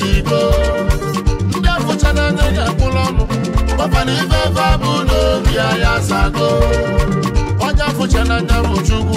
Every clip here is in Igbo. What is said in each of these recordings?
n'igbo ndị afụcha n'anya ya akpụrụ ọnụ kpọpana ife ebe abụ n'obi ya ya asago onye afụcha n'anya bụ Chukwu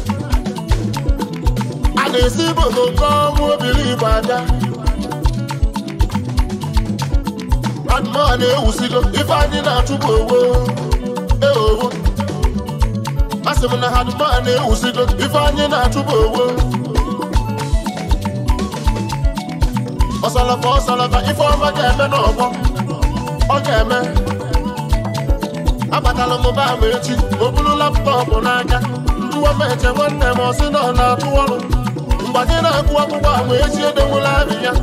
a na-esi bodo chọọ obiri obilibo aja mmadụ na-ewusigo ife anyị na-achụpụ owo eowo asị m na hadmaa na-ewusigo ife anyị na-achụpụ owo ọsalafa ọsalafa ife ọma ga-eme n'ọgbọ ọ ga-eme abatala m ba ama echi o buru laptọọpụ n'aka njụwa m eche nwanne m ọ sị na-atụ ọrụ mgbanye na-agụ akwụkwọ agba eji edowula ahịhịa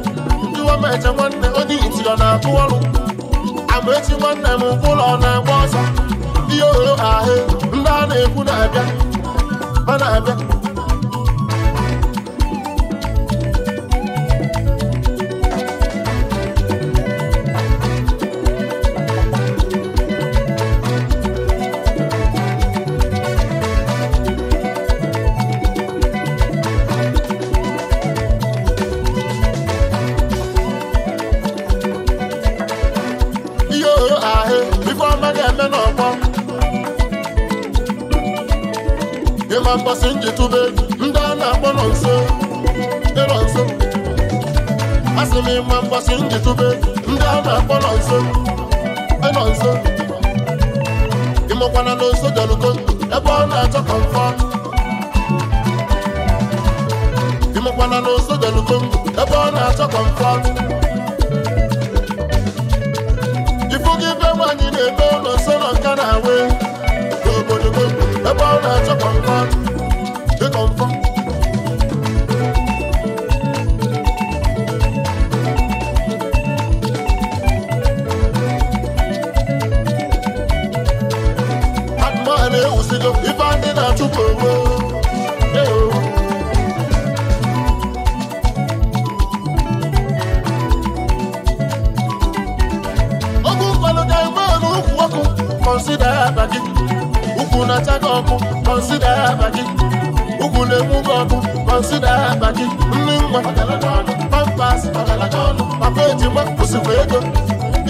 ndiwa m eje nwanne onye iti ọ na-akụ ọrụ amaechi nwanne m ụlọ na-agba ọsọ ndị ohere ahụ ndị a na-ekwu na-abịa ma na-abịa comfort osikwa ego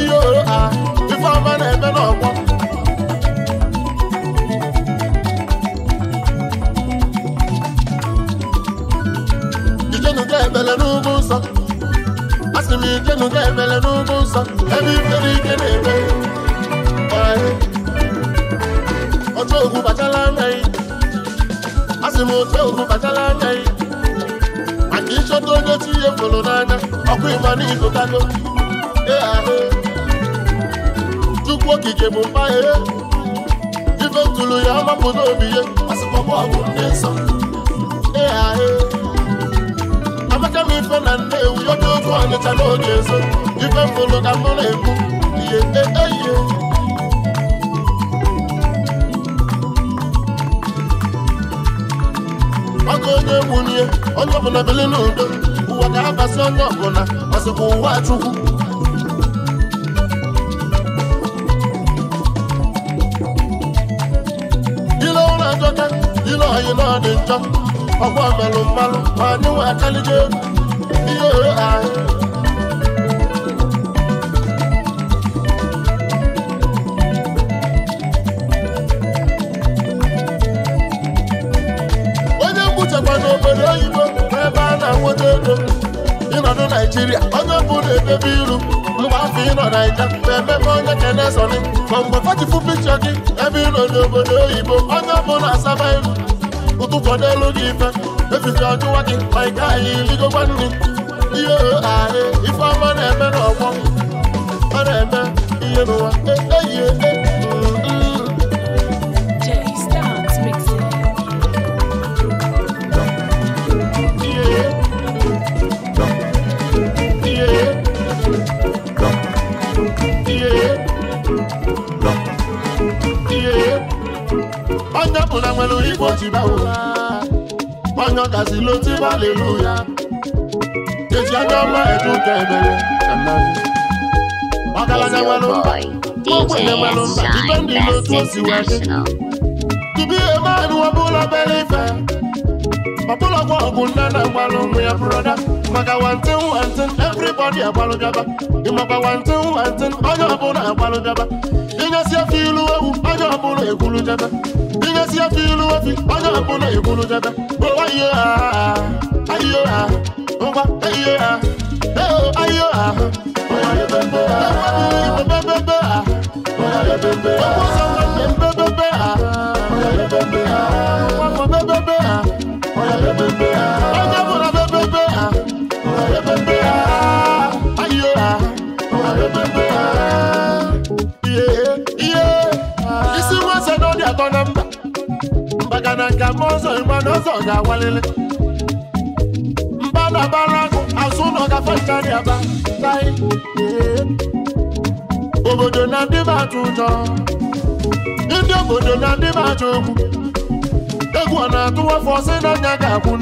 ihe ohere a ọma na-eme n'ọgbọ ijenuga ebele n'ugwu nsọ asị m ijenuga ebele n'ugwu nsọ ebe ifere ike na-eme otu ogwu bachala anya yi asị m otu ogwu bachala anya yi maka ịchọta onye chi ihe fụrụ n'anya ọkụ ịma n'ịgụtago dị ahụ chukwu okike bụ mmanya ibe tụrụ ya mapụta obi ya amaka m ife na nnewu ya oge oge ọnịcha n'oge ezo ife mụrụ ka mụ na-ekwu ihe eyihe e, maka onye nwunye onye ọbụla bili n'udo ụwa ga-abasị onye ọbụla ọsịkwa ụwa chukwu ile na ọ dị njọ ọgwa melụ mmanụ ma anyị nwe akalije ihe anyị onye mgbuchekwa obodo oyibo ebe a na-anwụta ego ịnọdụ naijiria onye bụ na-edebe ilu mgbe afọ ịnọ naija ma emepe onye kenesoni ma mgbe fachifu pikchọ gị ebe ịnọ n'obodo oyibo onye bụ na-asaba ilu mo tún kọ́ dé lórí ìfẹ́ lẹ́sìn sí ọdún wájú ọ̀ìká yìí yíkó bá nù. iye ààrẹ ifá mọ́nà ẹ̀mẹ́ náà wọ́n mọ́nà ẹ̀mẹ́ iye nù wá ẹ̀yẹ ẹ̀yẹ. ọbụla nwere igbo jiba onye ọkazila otiba aleluya eji anya ọma eduka ebere ọgaranya nwere mba ogbenye nwere mba dipendị n'otu osi wee dị tupu ihe maanị ọbụla bere ọbụlagwa ọgwụ na mgbalụ ụmụ ya maka everybody ọbụla agbalụgaba ịnyesi ilu ewu onye ọbụla ekwulujaba yesi efi ilu efi ọjọ́ ìkúnlẹ ìkúnlẹ jẹbẹ owó ayé ha ayé ha ngwa ayé ha eo ayé ha ọwọ́ ayé bẹbẹ ha ọwọ́ ayé bẹbẹ ha ọwọ́ ayé bẹbẹ ha ọwọ́ ayé bẹbẹ ha ọwọ́ ayé bẹbẹ ha ọwọ́ ayé bẹbẹ ha ọwọ́ ayé bẹbẹ ha ọjọ́ ìkúnlẹ bẹbẹ ha ọwọ́ ayé bẹbẹ ha ayé ha ọwọ́ ayé bẹbẹ ha. na nka m ọzọ ịgbana ọzọ ga-awalili mba na bara akụ azụ ụlọ gafe aba obodo na ndị m atụ ụjọ ndị obodo na ndị m atụ egwu na-atụwa afọ na ga-akwụ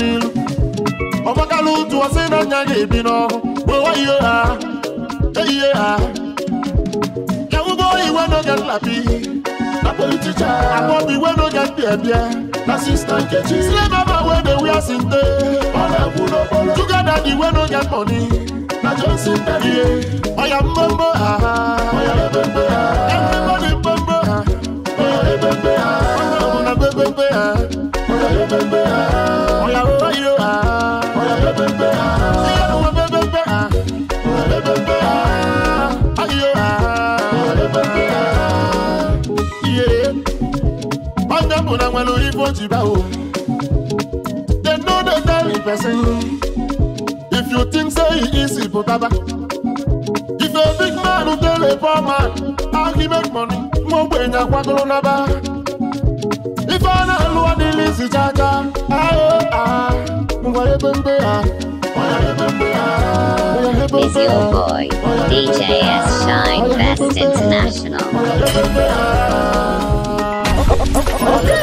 ga-ebi ha ihe ha e iwe n'oge iwe na sister nkechi slave mama wey dey wear sinte juga daddy wey no get money na johnson daddy oya mbombo ha oya ebembe ha everybody mbombo ha oya ebembe ha ọmọ na gbẹgbẹgbẹ ha. when you vote you bow. They know the very person. If you think say so, easy, but If a big man tell a poor man how he make money, more when you want to If I know who are the lazy jaja, ah ah, mwa ebembe ah. Is your ah. boy, DJ S. Ah. Shine Best ah. International.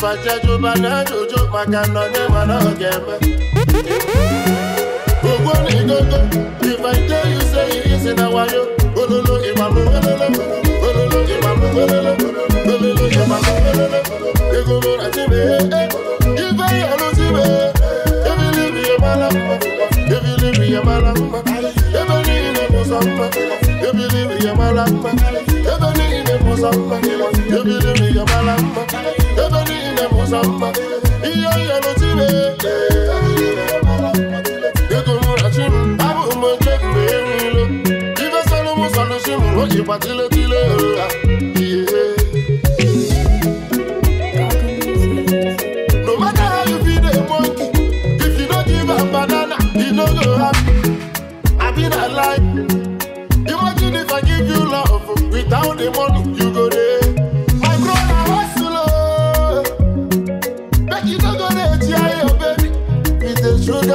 fajajo banajojo makanone manaogeme ogbo ni gogo if i tell you say e easy na wayo ololo imamu ololo ololo imamu ololo ololo imamu ololo egogo ati me ife yanu ti me ebi libi yamala ebi libi yamala ebe ni ile musa mma ebi libi yamala mma ebe ni ile musa mma ebi libi yamala mma ile muzamba iyo yano tibe Ego mura chim abu mo jekbe nilo Ibe solo mo solo shimu lo jipatile tile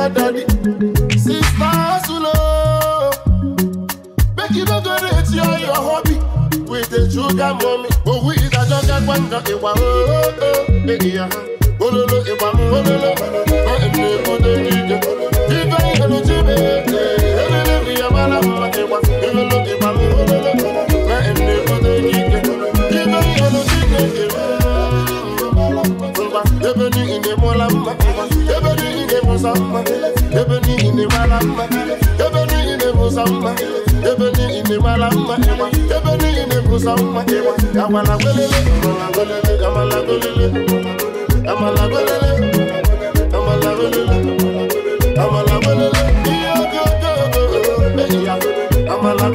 your daddy. Sister Sulo, oh. make you don't go rate your, your hobby with the sugar mommy. Oh, we is a jugger, one dog, a one, oh, oh, oh, yeah. Ololo, a one, ololo, ololo. mara mma ebe niile bụza mma ebe niile mara mma ebe niile bụza mma agwala amala golele amala golele amala golele amala golele amala golele amala golele amala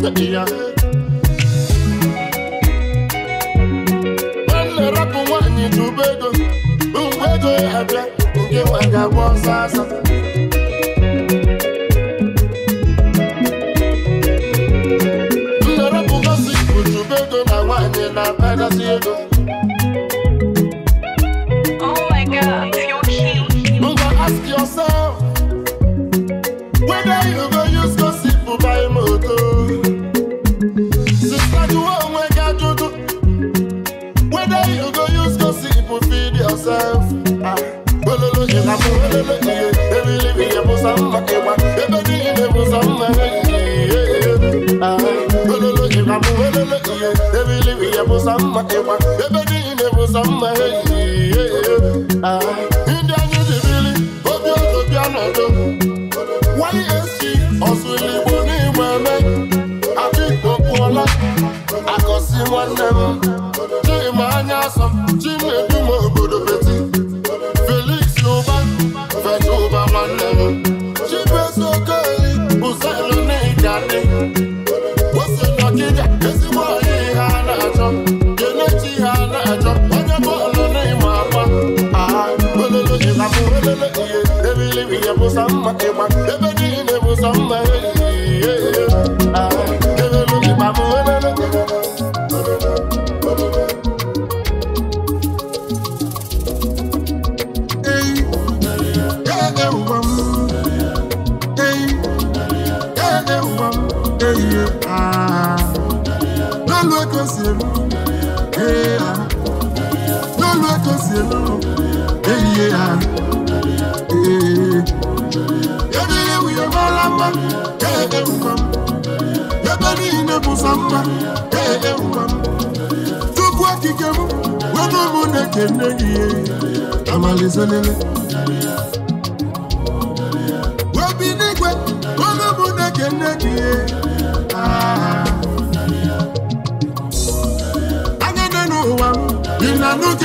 golele larị Yeah. ewuza mma ịgba ebe niile ewuza mma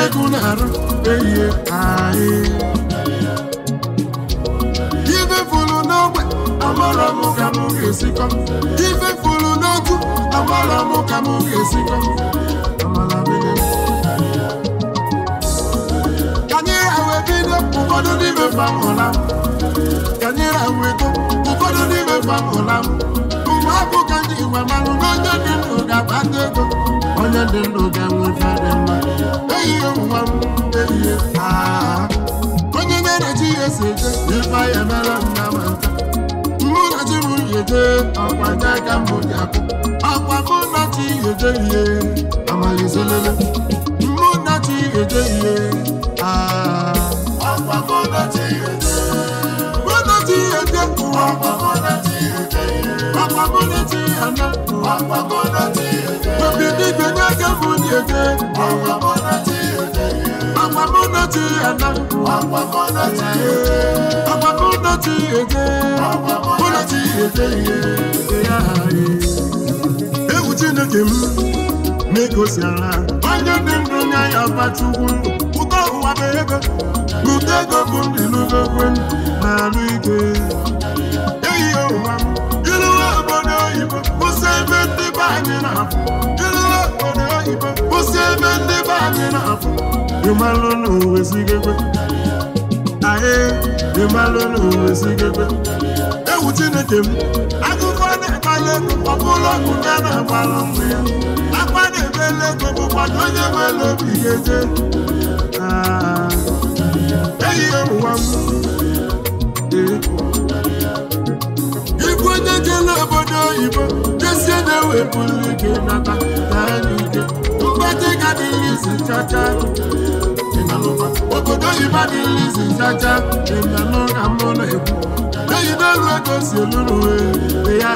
ego na-arụ eyie anyị ife fụrụ n'ogbe amara m ka m ga-esikọ ga-esikọ ụfọdụ n'ime famụla ka m Sabu kandi iwe manu Nonye dendo da bande go Onye dendo da mwefa dema Eye mwamu eye seje Ifa ye mela Muna ji mu yeje Akwa nyaka mu muna ji yeje ye Muna ji yeje ye muna ji yeje Akwamuneti ana. Akwamuneti ete. Obidi gbẹ̀ni akẹ́funi ana. Egwu Chineke m na-egosi ala, Onye dị ndụ nye ya bachukwu. ụwa bụ ego. ego bụ ndị na ebe ndị na oyibo kwụsị ebe ndị be na-afụ na owezigegbe aye ịmalụ na owezigegbe chineke m akụkọ na-akpali ego ọ na-agbalụ mgbe ya akwa na-ebele ego bụkwana onye nwere obi ga-eje ehihie ụwa m onye obodo oyibo isi na-ewepụrụ ike nata na anya ike mgbatị ka dịrị isi chacha obodo oyibo dịrị isi chacha ịna n'ụka mụ na-ekwu eyi n'elu ego you, eluru ya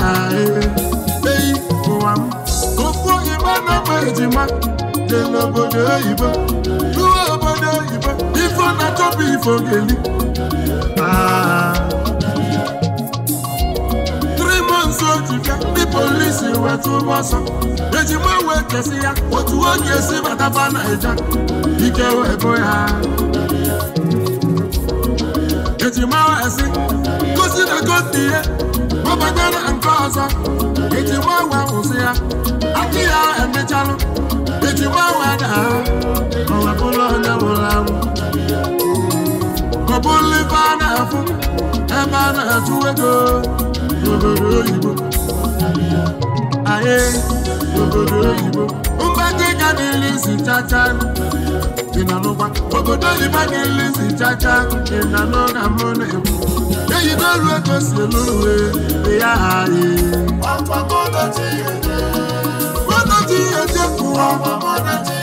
eyi ụwa m ofu oyibo na-ama ejima dị n'obodo oyibo ruo obodo oyibo ifo na-achọpụ ifo geli ah. atụke ndị polisi weta ụgbọ ọsọ ejima wee kesi ya otu oge esi na naija ike wee bụ ya ejima esi gosi na gosi ihe ọbata na nke ọzọ ejima wee kwụsị ya akị ya emechalụ ejima wee daa ọwepụrụ onye nwụrụ anwụ ọ bụrụ ife a na-afụ ebe a na-atụ ego n'obodo oyibo ahịa n'obodo oyibo mgbata ịga si chacha dị na n'ụkwa obodo oyibo niile si chacha dị na mụ na-ekwu eyi si elu uwe ya ahị eje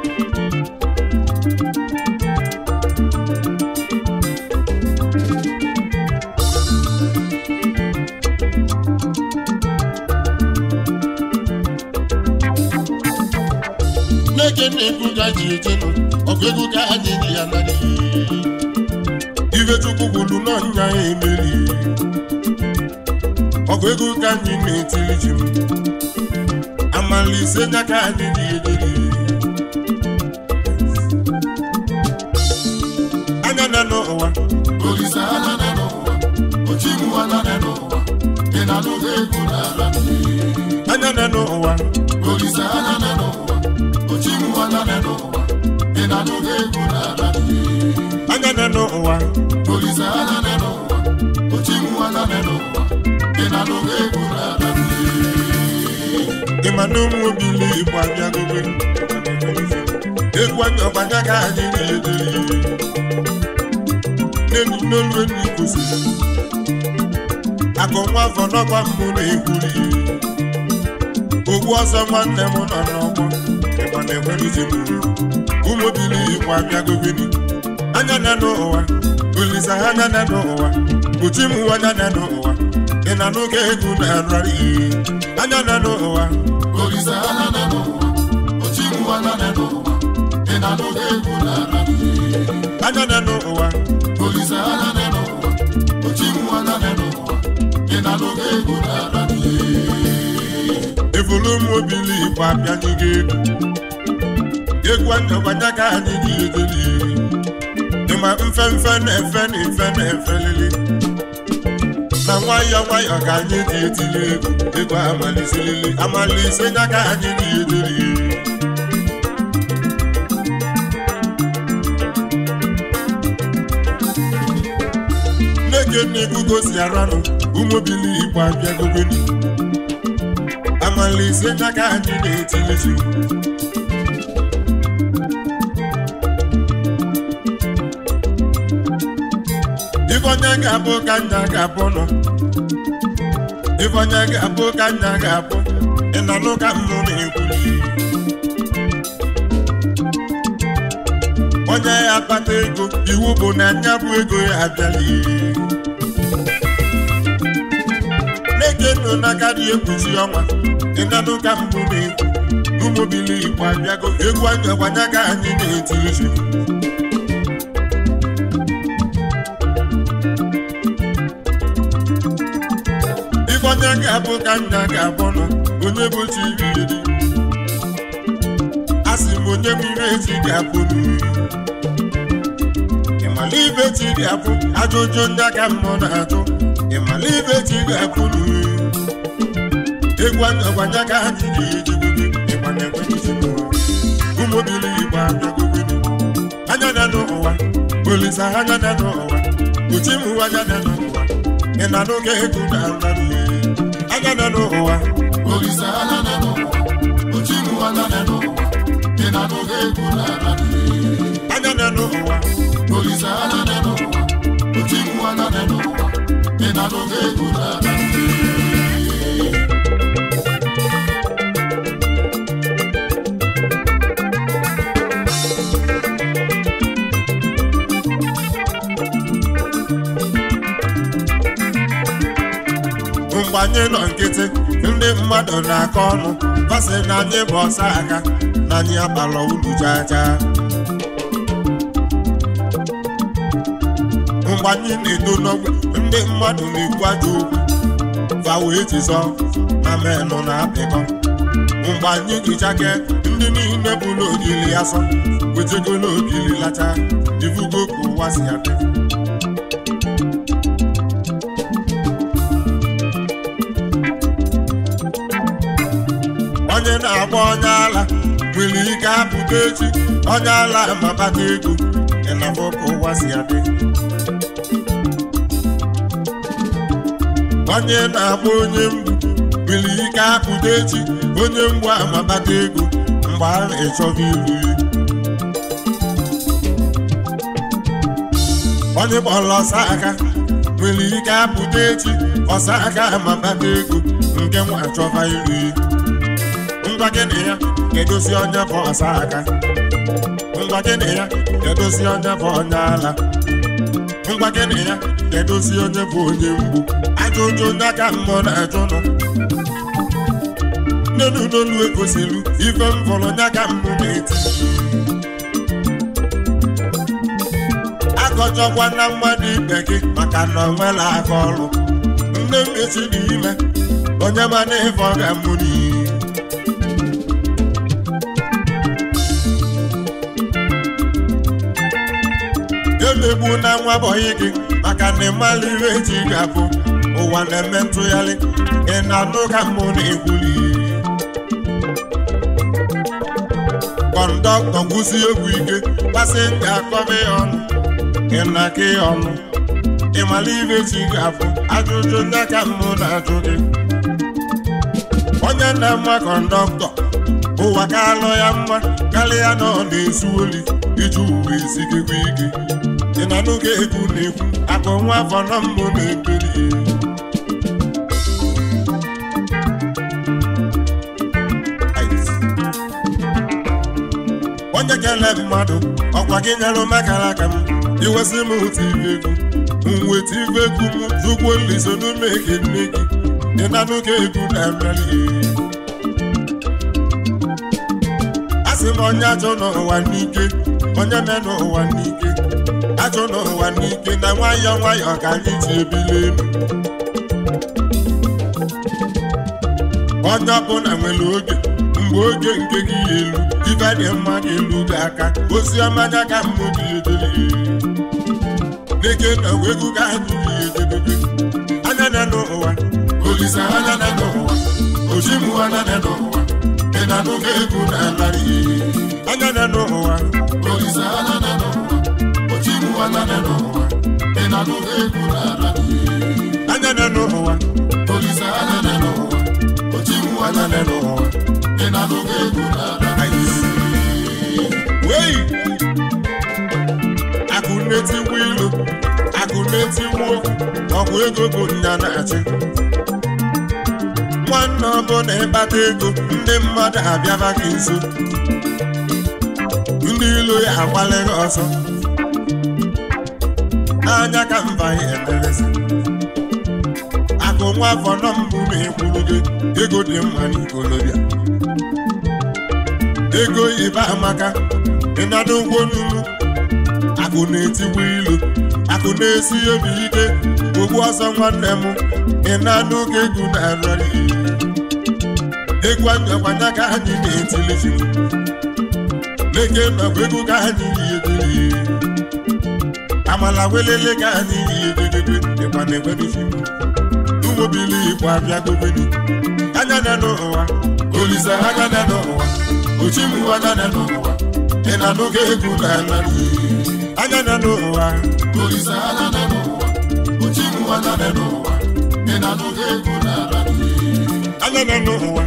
ije na ga ji nọ, ọgụ ego ga ha na-enye ya narị chukwu kwuru emeri ego anyị na-etiri ji m amala ise n'aka anyị anya na n'ụwa anya na n'ụwa na n'ụwa dị na ego na anya na n'ụwa anya na n'ụwa anya na n'ụwa olise anya na n'ụwa n'ụwa na egwu ịma na ụmụ obi ndị Igbo abịagogo egwu anya ọbanya ka anyị na-edere n'elu n'olu enyi kwụsịrị akụ nwa afọ n'ọkwa mbụ na-egwuri ogwu ọzọ nwanne m nọ n'ọgbọ Ọ na-enweruzi ụmụ obili igbo abịagobini anya na n'ụwa olisa ha na na n'ụwa uchi m na n'ụwa ị na n'oge ego na anya na n'ụwa olisa n'ụwa ụwa na anya na n'ụwa olisa ha na na n'ụwa uchi m ụwa na na n'ụwa ị na n'oge ego na ifuru m obili igbo abịanyego ego egwu ndọbata ka anyị ga-edeli ịma mfe na efe na-efelili na nwayọ nwayọ ka anyị ji etili egwu egwu amalisilili amalise ya ka anyị ga-edeli nne gị nne gugosi aranụ ụmụbili igbo abịagogoni na n'aka anyị na-etilizi ifeonye ga-abụ ka nna ga-abụ nọ ifeonye ga-abụ ka nna ga-abụ ị nọ n'ụka mbụ na-ekwu onye ya akpata ego iwu bụ na anya bụ ego ya abịala ego n'aka dị ekwuchi ọnwa ịnanụ ka mbụ ụmụ ekwu ụmụbili igbo abịago egwu anyawanye ka anyị na-eti uche onye ga-abụ ka nna ga-abụ nọ onye bụ chi iri a sị m onye mmiri echi ga-abụ n'iri ịmala ibe chi ga-abụ ajụjụ ndị aka mmụọ na-ajụ ịmala ibe chi ga-abụ n'iri egwu agbanye ka anyị ga-eji ịgbanye ụmụbili igbo abịagobedu anya n'ụwa anya na n'ụwa anya na n'ụwa ị anya na n'ụwa anya na n'ụwa uchi m anya na n'ụwa ị ego na anya na n'ụwa anya na n'ụwa uchi na n'ụwa ị ego na anyị nọ nkịtị ndị mmadụ na-akọ ọnụ basị na anyị bụ ọsọ aka na anyị agbala ulu jaja mgbe anyị na-edo n'ogbe ndị mmadụ na-ekwu aja okwu vawo ejizọ na menụ na apịkọ mgbe anyị gụchake ndị niile bụ n'ogili asọ wejego n'ogili lacha ivugo ka ụwa si adị Ogechi onye ala mabata ego ịnafọ ka ụwa si adị onye na-agba onye mgbu nwere ike apụta echi onye mgbu amabata ego mgbe a na-echọba iru ya onye gbọrọ ọsa aka nwere ike apụta echi ọsa aka amabata ego nke nwa achọba iru ngwa gịnị ya kedozi onye bụ ọsa aka ngwa gịnị ya kedozi onye bụ onye ala ngwa gịnị ya kedozi onye bụ onye mgbu ajụjụ ndị aka mmụọ na-ajụnụ n'elu n'olu egosiri ife m fọrọ onye aka mmụ na-eti akọjọkwa na mmadụ ibe gị maka na ọ nwela aka ọrụ nne m esi n'ime onye ma na ịfọ ga mmegbu na nwa bọyị gị maka na ịmala ihe eji ga-abụ ụwa na-eme ntụgharị ị na adụ ka mbụ na egwuli kọndọktọ ngwụsị egwu ike pasenja akọba ya ọnụ ị na-aka ya ọnụ ịmala ihe eji ga-abụ ajụjụ ndị ka mbụ na-ajụ gị onye na ama kọndọktọ ụwa ka alụ ya mma karịa na ọ na-ezu oli iji uwe isi gị ike si na nụ ga na-ekwu akụ nwa afọ na mbụ na-ebili onye kele mmadụ ọkwa gị nyere makara aka m iwesị m otu ibe egwu mweta ibe egwu m zụkwuo nliso n'ume gị nne gị dị na nụ ga-ekwu na mmeli asị m onye ajọ n'ụwa n'ike onye me n'ụwa n'ike ajọ n'ụwa n'ike na nwayọ nwayọ ka anyị ji elu onye ọbụla nwere oge mgbe oge nke gị elu ibe dị mma elu gị aka ozi ọma ka mmụ gị edeli na egwu ga anya na n'ụwa anya na n'ụwa anya na anya n'ụwa olise anya n'ụwa ochiwu anya n'ụwa ị na-anụgo egwu wei akụ na-etigbu ilu akụ na-etigbu ọkwa ego bụ nya na-achị nwanne ọbụ na-ekpata ego ndị mmadụ abịaba gị nso ndị ilu ya agbalịghị ọzọ anya ka mba ihe eteresi akụ nwa afọ nọ mbụ ma ekwuru gị ego dị mma n'ikolobịa ego ibe amaka ịnada ụgwọ n'ugwu akụ na-etiwe ilu akụ na-esi obi ike ogbu ọsọ nwanne m ịnada ụka egwu na-arịa egwu anyakwanya ka anyị na-etili leke nọkwa ego ka anyị na-ebili amala welele ga adịghị egegede dịkwa na ụmụ ụmụbili igbo abịa gobedi anya na n'ụwa olisa anya na n'ụwa ochimu anya na n'ụwa ị na n'oge egwu na ala anya na n'ụwa olisa anya na n'ụwa ochimu anya na n'ụwa ị na n'oge egwu na ala anya na n'ụwa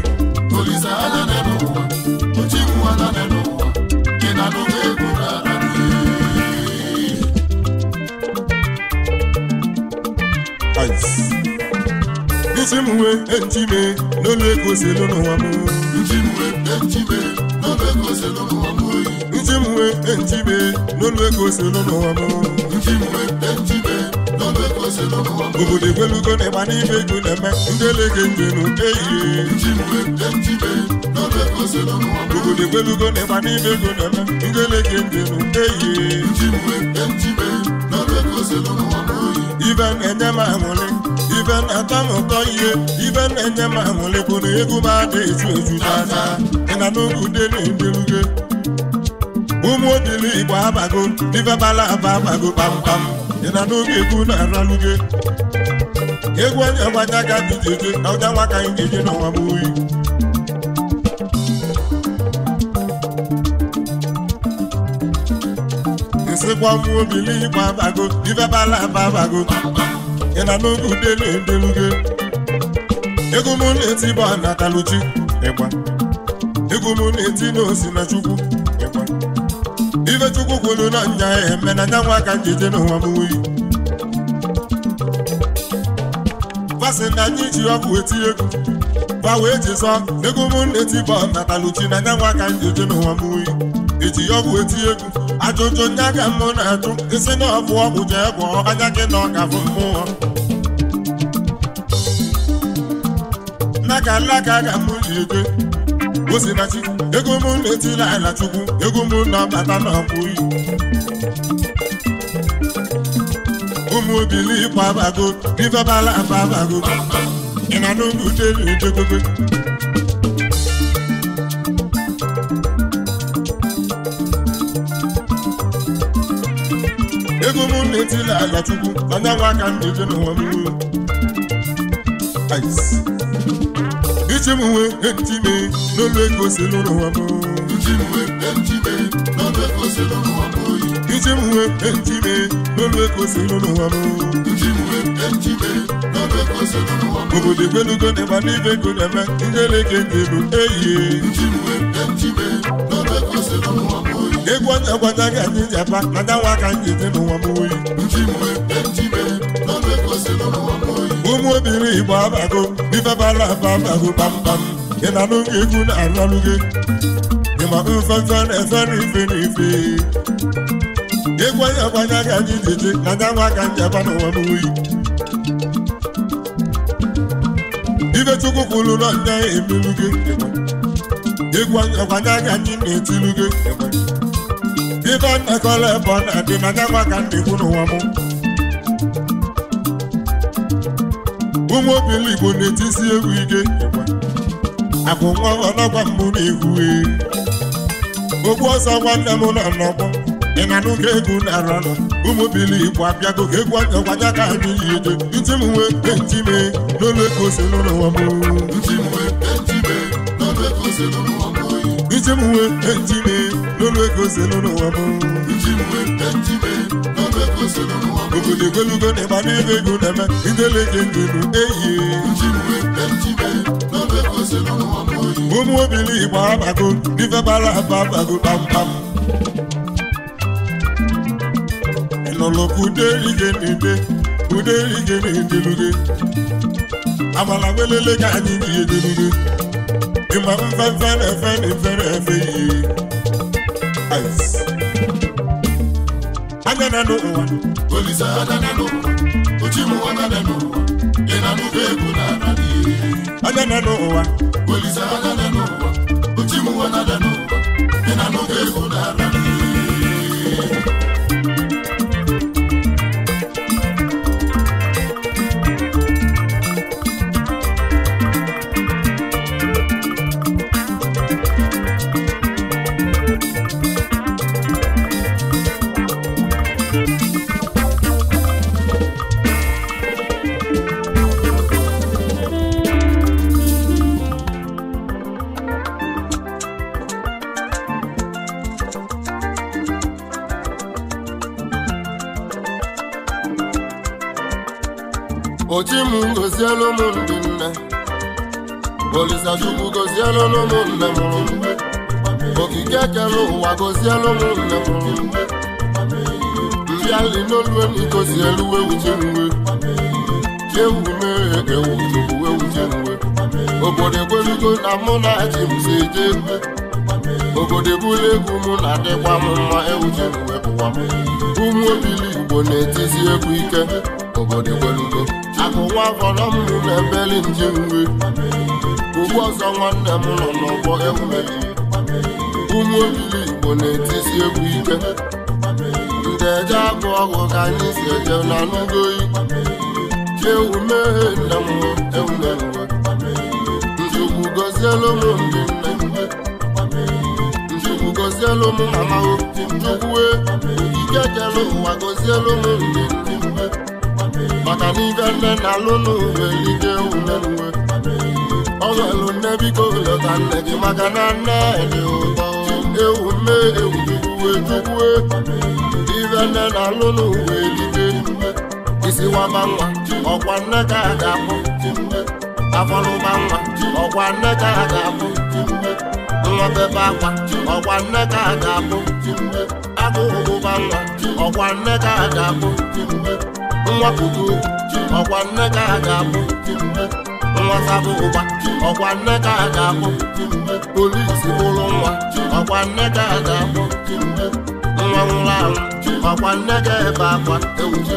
olisa anya na n'ụwa ochimu anya na n'ụwa ị na n'oge egwu isi m uwe ejime n'olu ego oselu n'ụwa m nji m n'olu ego n'ụwa n'olu ego oselu n'ụwa n'ụwa obodo egwelugo na n'ime ego na-eme ndị njenu eyiye n'ụwa obodo egwelugo na n'ime ego na-eme ndị njenu eyiye ibe ibe na-atọ m ụtọ ihe ibe na-enye m aṅụlịkwụrụ egwu m ada ezu ezu n'anya ị na n'oge udele edeluge ụmụ odili igbo abago ibe bala aba abago pam pam, ị na n'oge egwu na-araluge egwu onye gbanya ga dị jeje ọja nwa ka anyị ga na n'ọnwa m oyi nsịkwa ụmụ obili igbo abago ibe bala aba abago pam pam. ị na n'oge udelu edelugo ego m na-eti ba na kaluchi ịgba ego m na-eti n'osi na chukwu ịgba ife chukwu kwuru na nya eme na nya aka ka njeje n'ụwa m wuyi fasị na anyị ji ọgwụ eti egwu gwa wee jizọ ego m na-eti ba na kaluchi na nya aka ka njeje n'ụwa m wuyi eji ọgwụ eti egwu ajụjụ ndị aga mụ na-ajụ isi na ọbụ ọgwụ jee gwọọ anya gị na ọkafụ mmụọ n'aka alaka ka mụ na-ego osinachi ego mụ na-etiri ala chukwu ego mụ na-abata na ọbụyi ụmụ bilikwa abago ifebala ababago ị na n'ụlọ uche na-ejegogo etila Ala chukwu na nwa aka m eje n'ụwa m ichimwe m ichimwe n'olu ego si n'ụlọ ụwa m ichimwe n'olu ego si m ichimwe n'olu ego si n'ụlọ ụwa obodo egbelugo dị n'ibe ego na-eme bụ eyi n'olu ego si n'ụlọ ụwa egwu onye ọgbada ga anyị ji apa mada nwa ka anyị ji n'ụwa m oyi ụmụ obiri igbo abago ifebara aba abago kpamkpam ị na-anụ gị egwu na-alụ gị ịma mfefe na-efe n'ife n'ife egwu onye ọgbada ga anyị ji ji mada nwa ka anyị apa n'ụwa m oyi ife chukwu kwuru na ndị emelu gị egwu ọgbada ga anyị na-etilu gị ibe mmekọrọ ebe ọ na-adị ma ka ndị ikwu n'ụwa mụ. ụmụ obili igbo egwu ike akwụkwọ nwa ọlọgwa mbụ na-egwu okwu ọsọ nwanne m nọ n'ọgbọ na-ara ụmụ egwu anya gwanya ka anyị mee ego mee ego n'olu ego selu n'ụwa m obodo ebelugo n'ebe ego na-eme ndelege ndelu eyi ụmụ obili igbo abago n'ife bara aba abago kpamkpam ịnụlụkụ uderige na n'ide uderige na-edeluge amala nwelele ka anyị ji edeluge ịma mfefe na efe na efe efe eyes. Anya no ụwa. Olisa anya na no. Ochimu ụwa na no. ụwa. Olisa ụwa. koziala ụmụ ndị nne Olisachukwu goziela ụmụ nne mụrụ okike kere ụwa goziela ụmụ nne mụrụ mbịali n'olueni gozielu ewuje nwe chiewu mee ewu tupu ewuje nwe obodo egwelugo na mụ na ji mze Obode obodo ebula egwu mụ na adịkwa m mma ewuje nwe bụkwa ụmụ obili Igbo akụwa afọrọ m nụ na-ebeli nje uwe ugwu ọzọ nwanne m nọ n'ọgbọ emume ụmụ olili igbo na-etisi egwu ike ndị eje abụ ọgụ ka anyị si eje na n'ugoyi chiewu meghe nne m emume njukwu gozielu m ndị nne njukwu gozielu m mama njukwu e. ikekele ụwa gozielu m ndị nne maka na ibe e e e nne na-alụ n'uwe ije ule uwe ọ nwelu nne biko leta nne gị maka na nne dị ụtọ ewu nne ewu uwe tukwue ibe nne na-alụ n'uwe ije ume isiwaba nwa ọkwa nne ka a ga-apụ afọlụba nwa ọkwa nne ka a ga-apụ nwa bebe akwa ọkwa nne ka a ga-apụ agụụba nwa ọkwa nne ka a ga-apụ nwapụta uju ọkwa nne ka a ga-abụ nwasabụ ụgba ọkwa nne ka a ga-abụ polisi ụlọ nwa ọkwa nne ka a ga-abụ nwa nwụrụ anwụ ọkwa nne ka ebe akwa ewuje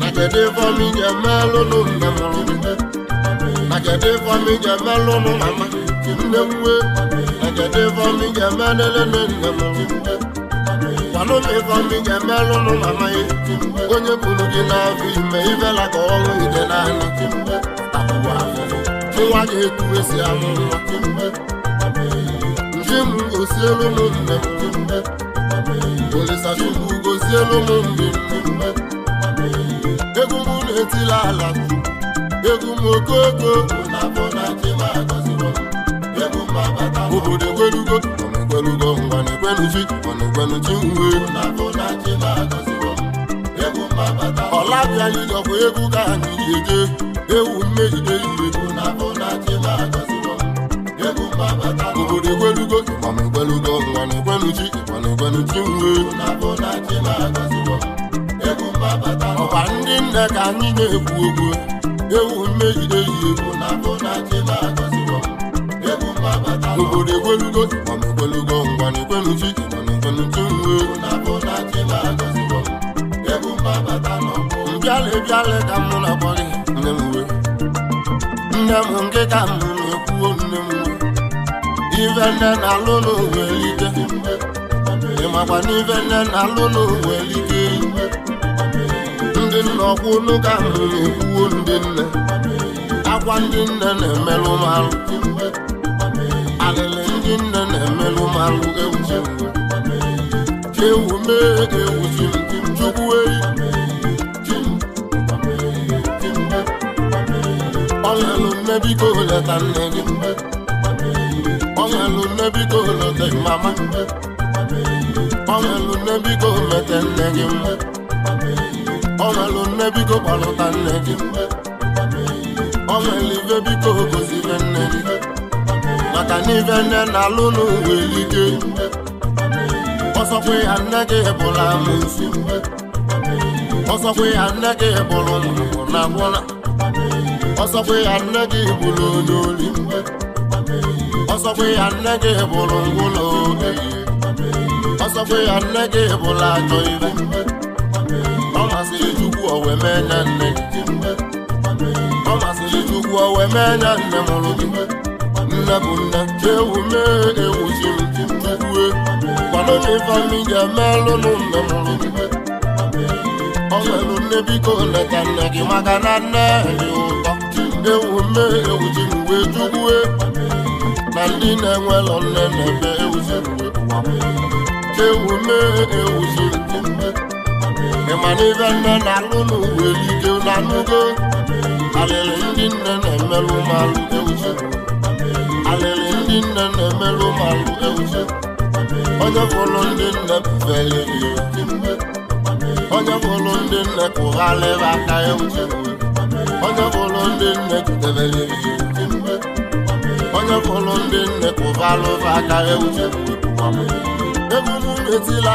na kedu ife ọmị ga-emelụ nụ nne mụrụ na kedu ife ọmị ga-emelụ nụ mama nne nwe na kedu ife ọmị ga-emelele nne mụrụ Wanome fwa mingembe lononmanay Gwenye pouno gen avime Ivela kwa wongon ide nan Kime, akwa wane Che waje etu e se amou Kime, ame Kimu gose lounonme Kime, ame Kimu gose lounonme Kime, ame Ekou moun eti lalakou Ekou mou koko O napona che wajazimou Ekou mabatamou O kode kode kote ekwelugo ngwa na ekweluzi mana ekwelu chi uwe ọkwa egwu ka anyị ji eje ewu mmegide obodo na ekweluzi mana ekwelu chi uwe ndị nne ka anyị na-ekwu okwu ewu mmegide ihe egolugo mana ekwolugo ngwa na ekwenufi mana ekwenufi nwe na-akpọ nne m nne m nke ka m na-ekwuo nne m we ife nne na-alụ n'ụwa elike nne na-alụ ndị nna ọkwụ ka m na-ekwuo ndị nne akwa ndị nne na-emelụ m ndị nne na-emelụ malụ ewu mee ewu chukwuei ọlụlụ mmebiko leta nne gị ọlụlụ mmebiko leta mama ọlụlụ mmebiko mete nne gị ọlụlụ mmebiko kpọlụta nne gị ọlụlụ ibe biko gozire nne gị maka na ibe nne na alụ n'oge ike ọsọkwa ya nne gị bụrụ amụsị ọsọkwe ya nne gị bụrụ na gwụla ọsọkwa ya nne gị bụrụ onye oli ọsọkwe ya nne gị bụrụ ya nne gị ajọ ibe ọ masịrị Chukwu owe mee nne gị ọ masịrị Chukwu owe mee nne mụrụ nna bụ nna chewu mee ewuziruue kwado n'ife anyị ji nna ọ nne biko leta na nne na ndị na nne na-eme ewuziruwe nne na-alụ n'uwe na ndị nne na-emerụ ụmụ alụ na na-emerụ ụmụalụ ewuze onye fụlụ ndị nne feli onye fụlụ ndị nne kụghalịrị aka ewuze onye fụlụ ndị nne jidebere onye fụlụ ndị nne kụghalụrị aka ewuze egwu m etila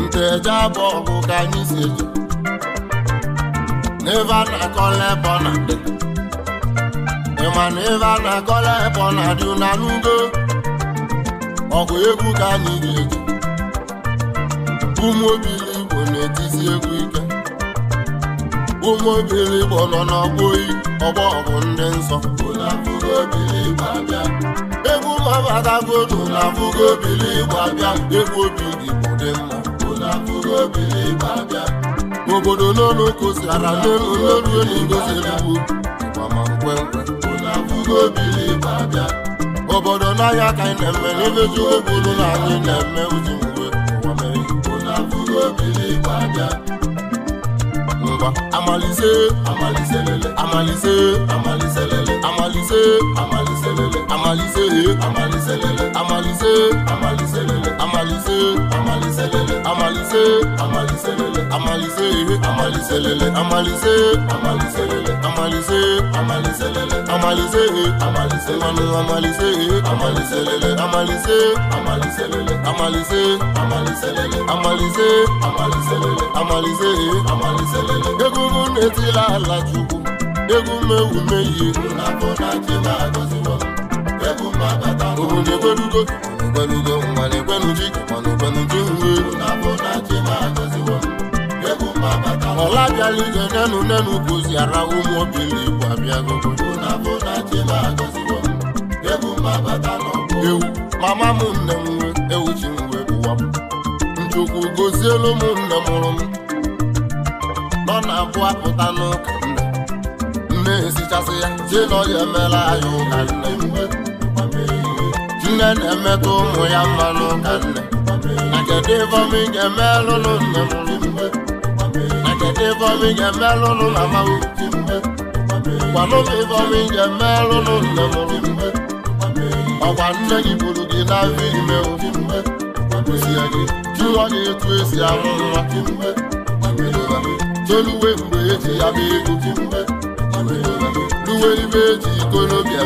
nche eje bụ ọgụ ka anyị si eje n'ebe a na-akọla ebe ọ na-adị ịma na ebe a na-akọla ebe ọ na-adị na n'ugo ọgụ egwu ka anyị ga-eji ụmụ obili igbo na-etizi egwu ike ụmụ obili igbo nọ n'ọgbọ oyi ọgbọ ọgụ ndị nsọ egwu mabatagodu na abụgo obili ịgba bịa egwu obi igbo dị mma obilibe abịa obodo n'olu kụzara n'olu n'olu abịa obodo n'ahịa ka anyị na-eme n'emeju obodo na anyị na-eme uju mgbe ụwa mere Amalise amalize lele Amalise, Amalise lele amalize Amalise, lele amalize amalize lele Amalise amalize lele Amalise, Amalise lele amalize Amalise, lele amalize amalize lele Amalise amalize lele Amalise, Amalise lele amalize Amalise, manu amalize amalize lele Amalise amalize lele Amalise, Amalise lele amalize Amalise, lele amalize amalize lele. arụrụ na-etila ala chukwu egwu mewume yi obodo egbelugo na mmanụ egbeluji mmanụ egbeluji nwe ọla bịala ije nenu nenu gozi ara ụmụ obili igbo abịago ewu mama m nne m nwe ewu ji m wee bụwa m nchukwu gozielu m nne mụrụ m ọ na-abụ pụta n'ụka nne nne esichasị ya tinọ ya emela anya ụka nne nne na-emetụ ụmụ ya mma n'ụka nne na kedu ifeọma ị ga-emelụnụ nne m na kedu na mama ga nne nne gị buru gị na afọ ime kwụsie gị jụọ gị etu esi amụ toluwe mgbe eji ya bụ ego luwe ibe eji ikolobịa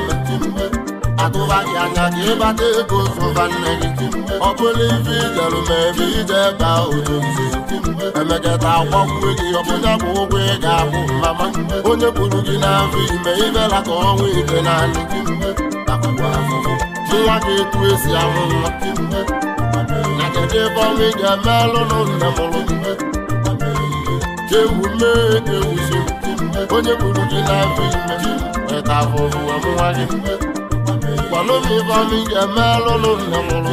atụba gị anya ka ịbata ego zụba nne gị ọ bụrụ ife ijeru ma ebe ije ebe otu nze emekata akwọkwuo gị ọbụnya bụ ụgwọ ị ga-abụ mama onye kwuru gị n'afọ ime ibela ka ọnwa ite naanị nwa gị etu esi amụ nwa na kedu ebe ọnwa ị ga-eme alụ na nne ewu le ewu ṣe onye kwuru gị n'afọ ime weta afọrụ wee mụwa gị gwanụmi gwanụ ga-eme alụlụ nna mụrụ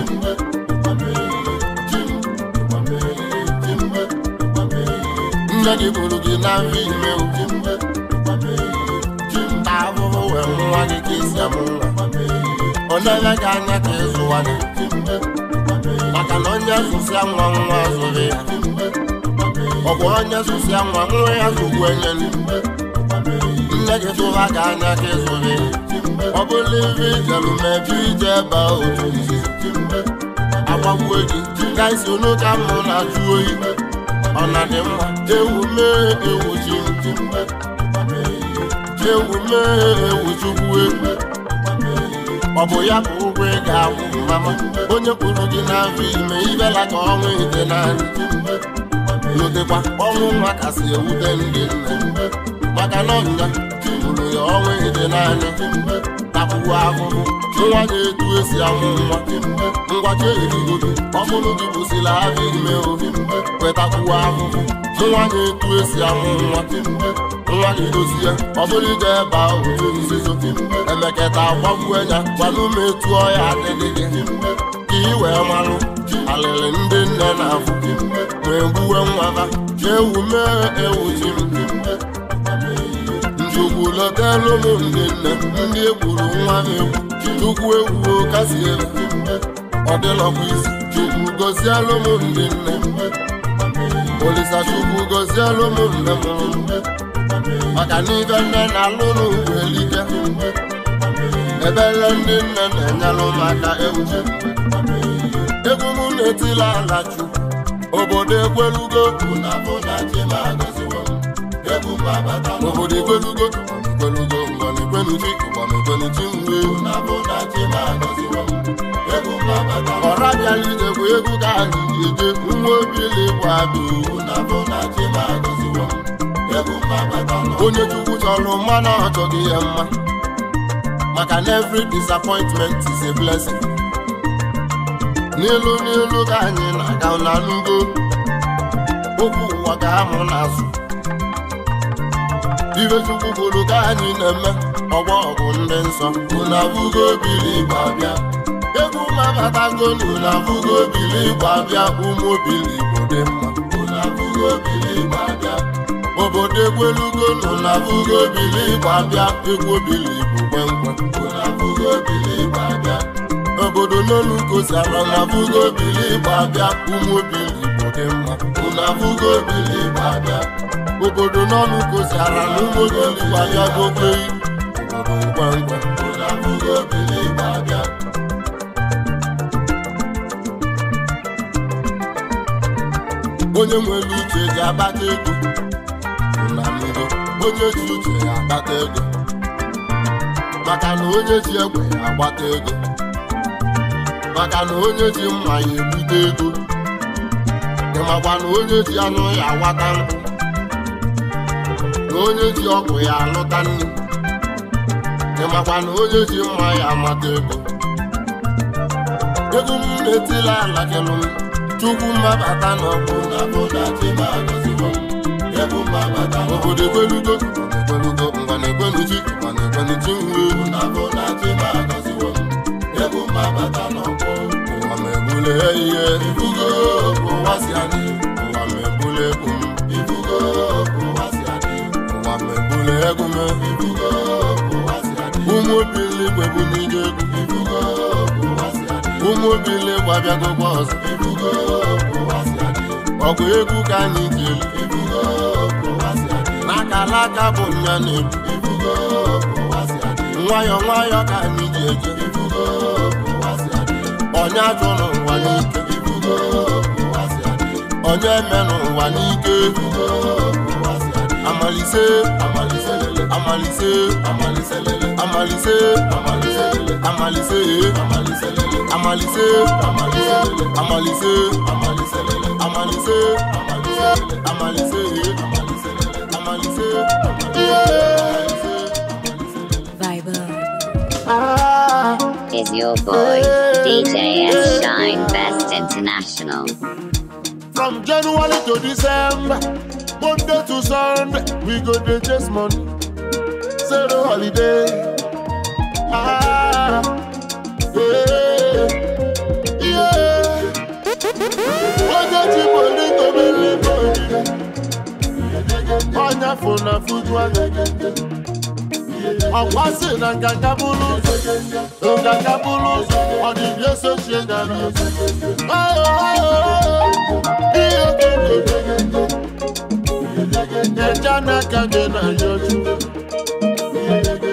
nne gị kwuru gị n'afọ ime ta afọrụ wee mụwa gị ka isi amụ nwa ọ na-enye gị anya ka ịzụwa gị maka na onye zụsịa nwa nwa zụrụ ya ọ bụ onye zụsia nwa nwa ya zụkwu enye nne gị tụha ka anya gị zụrụ ọ bụrụ ibe ijeru mebi ije ebe otu izi agbagbuo gị ka isi onu ka mụ na-ajụ oyi ọ na dị mma Ewume mee ewu ji ewu mee ewu ọ bụ ya bụ ụgwọ ịga ga-akwụ onye kwuru gị na-abụ ime ibela ka ọnwụ na nri. n'ụdịkwa ọnwụ nwa kasị ewute ndị nne maka na ọnya tigburu ya ọnwa ịdị naanị ahụhụ nwa na-etu esi amụ nwa ngwacha erigo gị gị ahụ ime ohi wetakwuo ahụhụ nwa na-etu esi amụ nwa nwa gị dozie ọ bụrụ ije ebe ahụ nzuzo emeketa gbagbuo ya gwana ya adịghị gị ka ị wee marụ ndị nne na wee gbuwe nwa ewu mee ewu ndị nne ndị egburu nwa egwu ewu egwu kasi ọ dịlọkwa isi chukwu gozielụ m ndị nne olisa chukwu gozielụ m nne m maka n'ibe nne na-alụ elike ebele ndị nne na enye maka ewu egwu obodo ekwelugo obodo ekwelugo ekwelugo ngwana ekwenuchi ụgbana ekwenuchi mgbe ọra bịala idekwa egwu ka anyị eje nwa obilikwa adụ onye chukwu chọrọ mmanụ ọchọghị ya mma maka na every disappointment is a blessing. n'elu n'elu ka anyị na-aga n'alụgo okwu ụwa ka amụ n'azụ ibe chukwu bụrụ ka anyị na-eme ọgbọ ọgụ ndị nsọ unu abụgo bili igbo abịa egwu mabatago unu abụgo bili igbo abịa ụmụ obili igbo dị mma unu abụgo bili igbo abịa obodo egwelugo unu abụgo bili igbo abịa egwu obili igbo kwenkwe unu abụgo bili igbo abịa obodo n'olu gosara na abụgo obili igbo bịa ụmụ obili igbo dị mma unu abụgo obili igbo abịa obodo n'ọnụ gosara na ụmụ obili igbo abịa gobeyi obodo ngwangwa unu abụgo obili igbo bịa. onye nwere uche ga-akpata ego na ndo onye ji uche ya akpata ego maka na onye ji egbe agbata ego maka na onye ji mma ya egbute ego ị makwa na onye ji anụ ya awata nkụ na onye ji ọkụ ya alụta nri. ị makwa na onye ji mma ya amata ego ego m na-etila ala kelụ m chukwu mmabata na ọkụ na bụda chibagọzigo ego mmabata obodo ekwelugo ekwelugo ngwana ekweluchi ngwana ekweluchi nwuru ewu na bụda chibagọzigo ego mmabata na ọkpụ ebule ihe ibugo ụwa si adị egwu m ibugo ebule ibugo si adị ụmụ bụ n'ije egwu ibugo si adị ụmụ ibugo si adị ọgụ egwu ka anyị jeli ibugo n'aka alaka bụ nya na nwayọọ ka anyị ji eje ibugo si n'ike onye menụ ụwa n'ike amalise amalise amalise amalise amalise amalise amalise amalise amalise amalise amalise Viber is your boy. DJ Shine Best International. From January to December, Monday to Sunday, we go to chase money. Zero holiday. Ah, yeah, yeah. funa makwasi na nkaka bulu nkaka bulu ọdịbịa sochie ihe kene eja n'aka gị na yoju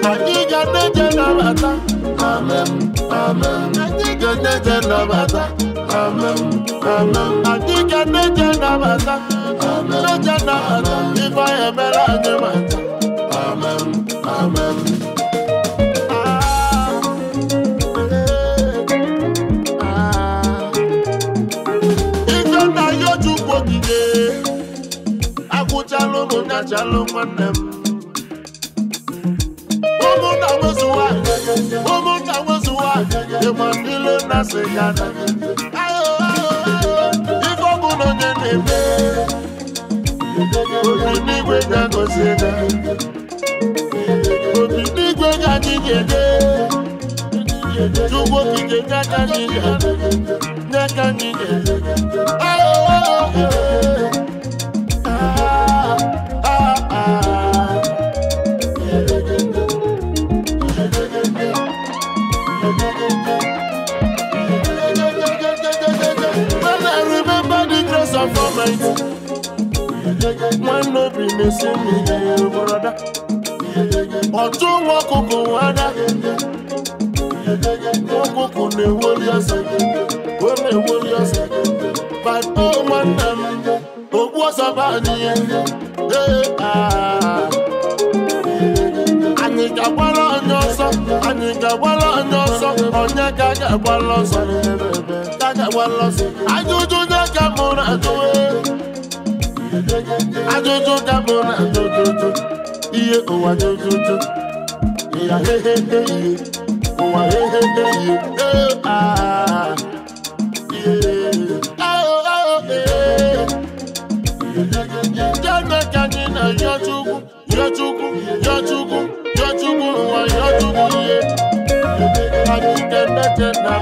anyị ga neje nabata amen amen anyị ga neje nabata amen anyị emere anyị mata mụchalụ ụmụnyachalụ nwanne m ụmụnna nwezu nwanyị ụmụnna nwezu nwanyị ịgba ilu na sịga ife ọbụla onye na n'igwe ga-agọzi ga n'igwe ga anyị ga-ede chukwu okike nye right. When no be missing me, brother. Ọ̀tún wọn kòkò wá dá. Wọ́n kòkò lè wọlé ẹsẹ̀. Wọ́n lè wọlé ẹsẹ̀. Bàbá ọmọ nà mí. Òkú ọ̀sán bá nìyẹn. Anyị ga-agbara onye ọsọ, anyị ga-agbara onye ọsọ, onye ga-aga agbara ọsọ n'ebe ebe walọsị ajụjụ ndị ka mụ na-ajụwe ajụjụ ka mụ na-ajụjụjụ ihe ụwa jụjụjụ ịya hehehe ihe ụwa hehehe ihe ee aa Jẹ́nẹ́kẹ́ ni nà yọjúgún, yọjúgún, yọjúgún, yọjúgún, wà yọjúgún yé. Àti tẹ́tẹ́tẹ́ náà.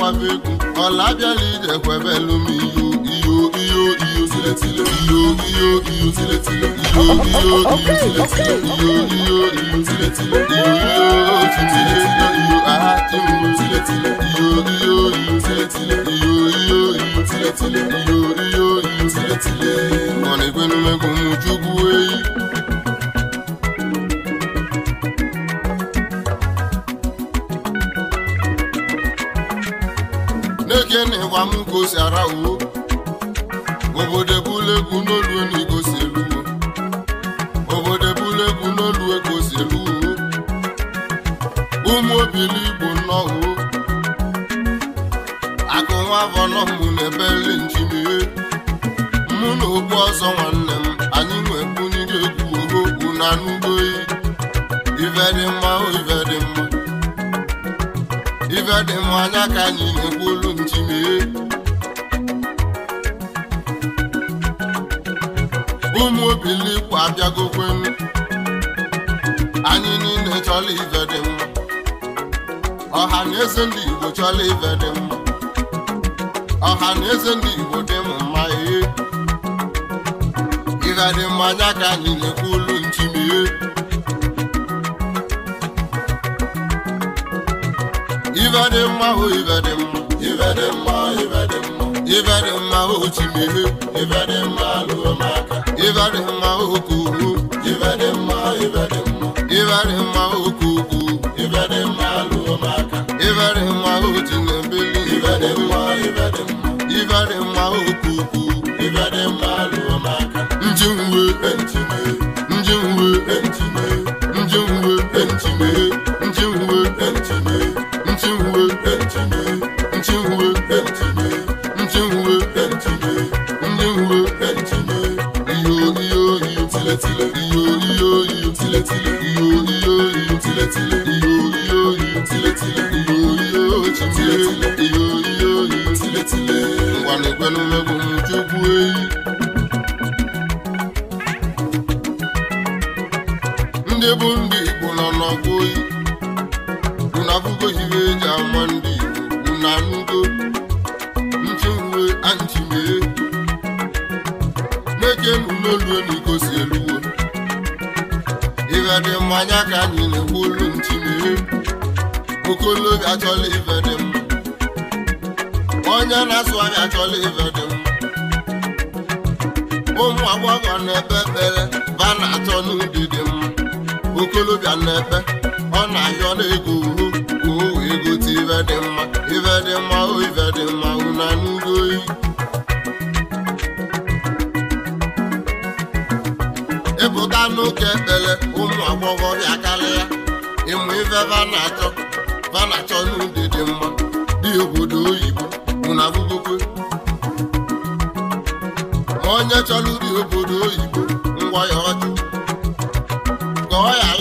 kwaveku ọ̀làbíẹ̀lì jẹ̀kọ̀ ẹ̀fẹ̀ lómi iyo iyo iyo iyo sílẹ̀ sílẹ̀ iyo iyo iyo sílẹ̀ sílẹ̀ iyo iyo iyo sílẹ̀ sílẹ̀ iyo iyo iyo sílẹ̀ sílẹ̀ iyo iyo sílẹ̀ sílẹ̀ iyo aha tí mo sílẹ̀ sílẹ̀ iyo iyo iyo sílẹ̀ sílẹ̀ iyo iyo iyo sílẹ̀ sílẹ̀ iyo iyo iyo sílẹ̀ sílẹ̀. ọ̀nà ìpinnu mẹ́kùn-ún mú jùgú èyí. ama m ka o obodo ebulegwu n'oluo na igo si obodo ebulegwu n'oluo ka o si eluo ụmụ obiligbo nnọọ akụ nwa vọnọmụ na ebeli njinie mụ na okwu ọzọ nwanne m anyị nwekwunyere egwu okwu na anụgoyi iveri mma oyi ife dị m anya ka anyị na-ekwu olu m chimee ụmụ obilikwu anyị niile chọla ife dị mụ. ọha na eze ndị Igbo chọla ife dị mụ. ọha na eze ndị Igbo dị m mma ihe. ife dị m anya ka anyị na-ekwu olu ibe dị mma o oh, ibe dị mma ibe dị mma ibe dị mma ibe dị mma o oh, chimehe ibe dị mma lụrụmaka ibe dị mma o oh, kuku ibe dị mma ibe dị mma ibe dị mma o kuku ibe dị mma lụrụmaka ibe dị mma o chinebili ibe dị mma ibe dị mma ibe dị mma o kuku ekwelu megbu m chukwu eyi ndị bụ ndị Igbo nọ n'ọkụ oyi na afụgo ibe eji ama ndị Igbo na nugo nchuwe anchimee nekenuloluelugo si eluwo ịga dị mmanya ka anyị na-egbu olu nchimee okolo ga-achọla ife onye na-asụ anya achọla ibe dị ụmụ agbọghọ na ekpe ekpere ba na-achọ n'udidi m okolobịa na ekpe ọ na-ahịọ na-ego uhu uhu egote ibe dị mma ibe dị mma o ibe dị mma una n'ugo oyi ịpụta n'ụka ekpere ụmụ agbọghọ bịa karịa ịmụ ife ba na-achọ ba na-achọ n'udidi mma dị obodo oyibo na-abụgokwe onye chọrọ iri obodo oyibo ngwa ya ọjụ ka ya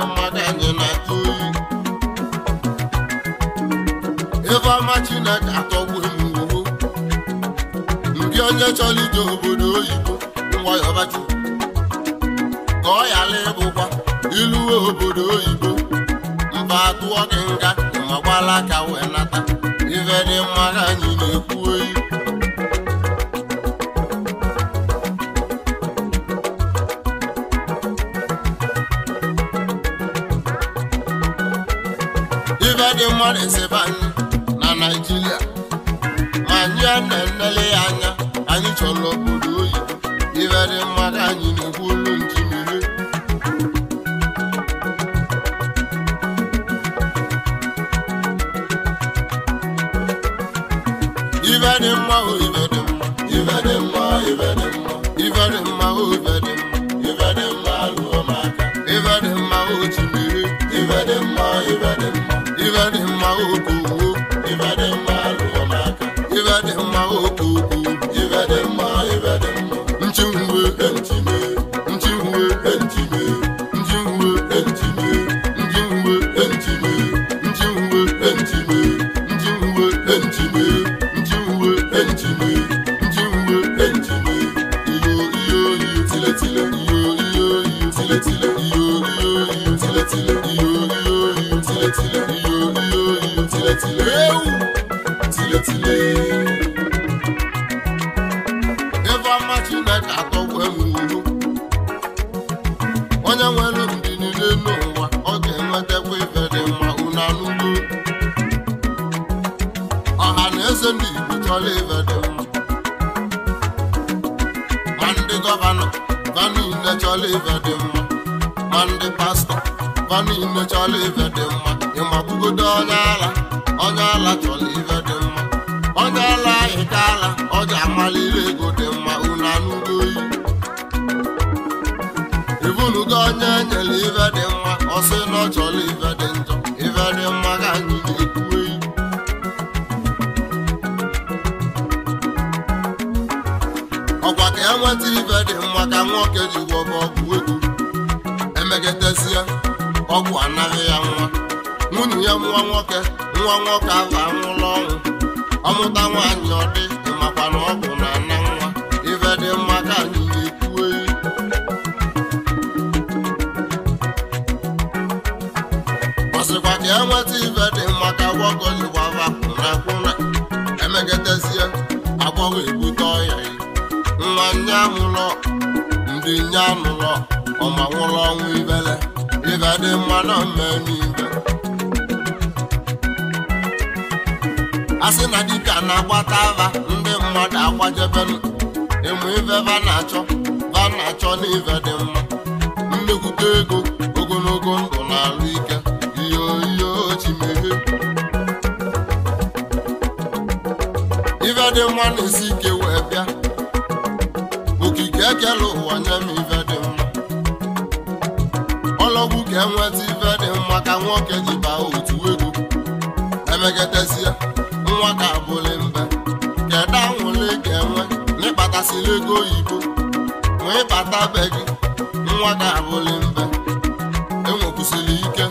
mmiri mmadụ anyị na-atụ ifeọma Chineke atọgbughị m ngwuru ndị onye chọrọ ije obodo oyibo nwayọbachi ka ọ ghara ịbụkwa iluwe obodo oyibo mba atụọ gị nga ma gbala aka wee nata ife dị mmadụ anyị na-ekwu oyi Amar Ezeban na Naịjirịa ma anyị a na-enele ya anya anyị chọrọ obodo oyi ibere mmadụ anyị na-ekwu ụmụ ife na-achọ na-achọ n'ife dị mma nnekwute ego ogologo ndụ na ike iyo iyo ife dị mma na-esi ike wee bịa okike ekele ụwa nye m ife dị mma ọlọgwụ ka enweta ife dị mma ka nwoke ji baa otu ego emekatasia nwa ka abụla ego oyibo wee bata be gị nwa ga abụli mbe enwekwusịrị ike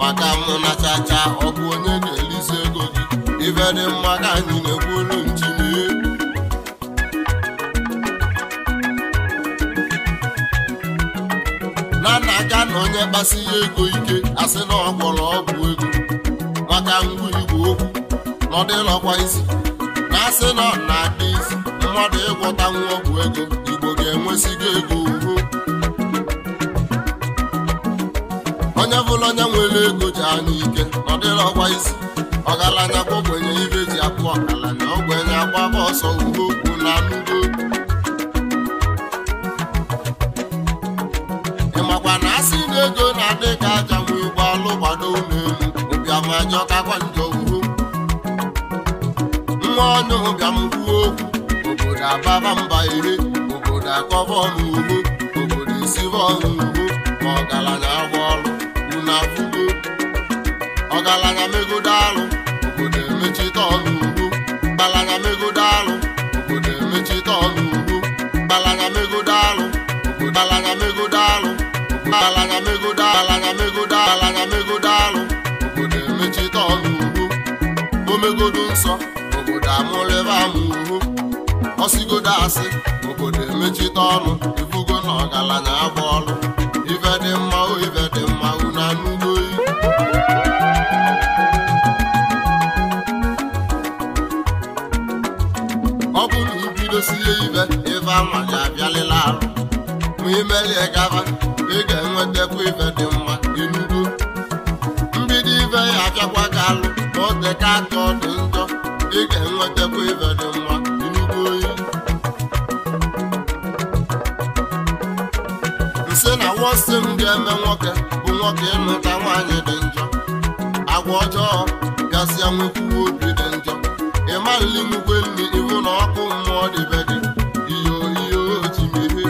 maka mụ na chacha ọ bụ onye ga-elizi ego gị ife dị mma ka anyị na olu njinie na nna aka na onye kpasi ya ego ike asị na ọ gwọrọ ọgwụ ego maka ngwa igwe okwu na ọ isi na asị na ọ na-adị isi mmadụ ịgwọta nwa ọgwụ ego igbo ga-enwesigo ego ugwu onye bụla onye nwere ego ji anya ike ọ dịrị ọgwa isi ọgaranya gwogwenye ibe ji akpụ ọgaranya ogbenye agbaba ọsọ ugbo okwu na anụgo ị makwa na asị na ego na-adị ka aja nwe ụgbọ alụ gbado ụlọelu ụbịamajọ kakwa njọ ugbo nwa onye ụbịam kwuo okwu ga-ababa mba iri obodo akọba ọnụ ugbo obodo esiba ọnụ ugbo ma ọgaranya agba ọrụ unu afụgo ọgaranya megodo alụ obodo emechite ọnụ ugbo mgbalanya megodo alụ obodo emechite ọnụ ugbo mgbalanya megodo alụ obodo mgbalanya megodo alụ mgbalanya megodo alanya megodo alanya megodo alụ obodo emechite ọnụ ugbo omegodo nsọ obodo amụlebe ama ugbo ọsigodo asị obodo emechite ọnụ ifugo na ọgaranya agba ọnụ ife dị mma o ife dị mma unu anụgo ọ bụ na ibidosie ife ife amanye abịalịla arụ ma imelie gaba ị ga-enwetakwu ife dị mma inugo mbido ife ya abịakwa ga alụ ma ọ dịka atọ dị njọ ị ga-enwetakwu ife dị agwọ m ga-eme nwoke bụ nwoke ịmụta nwaanyị dị njọ agwa ọjọọ gasịa nwekwuwe obi dị njọ ịmalili nwukwe nri iwu na ọkụ mmụọ dịbe dị iyo ji otimiri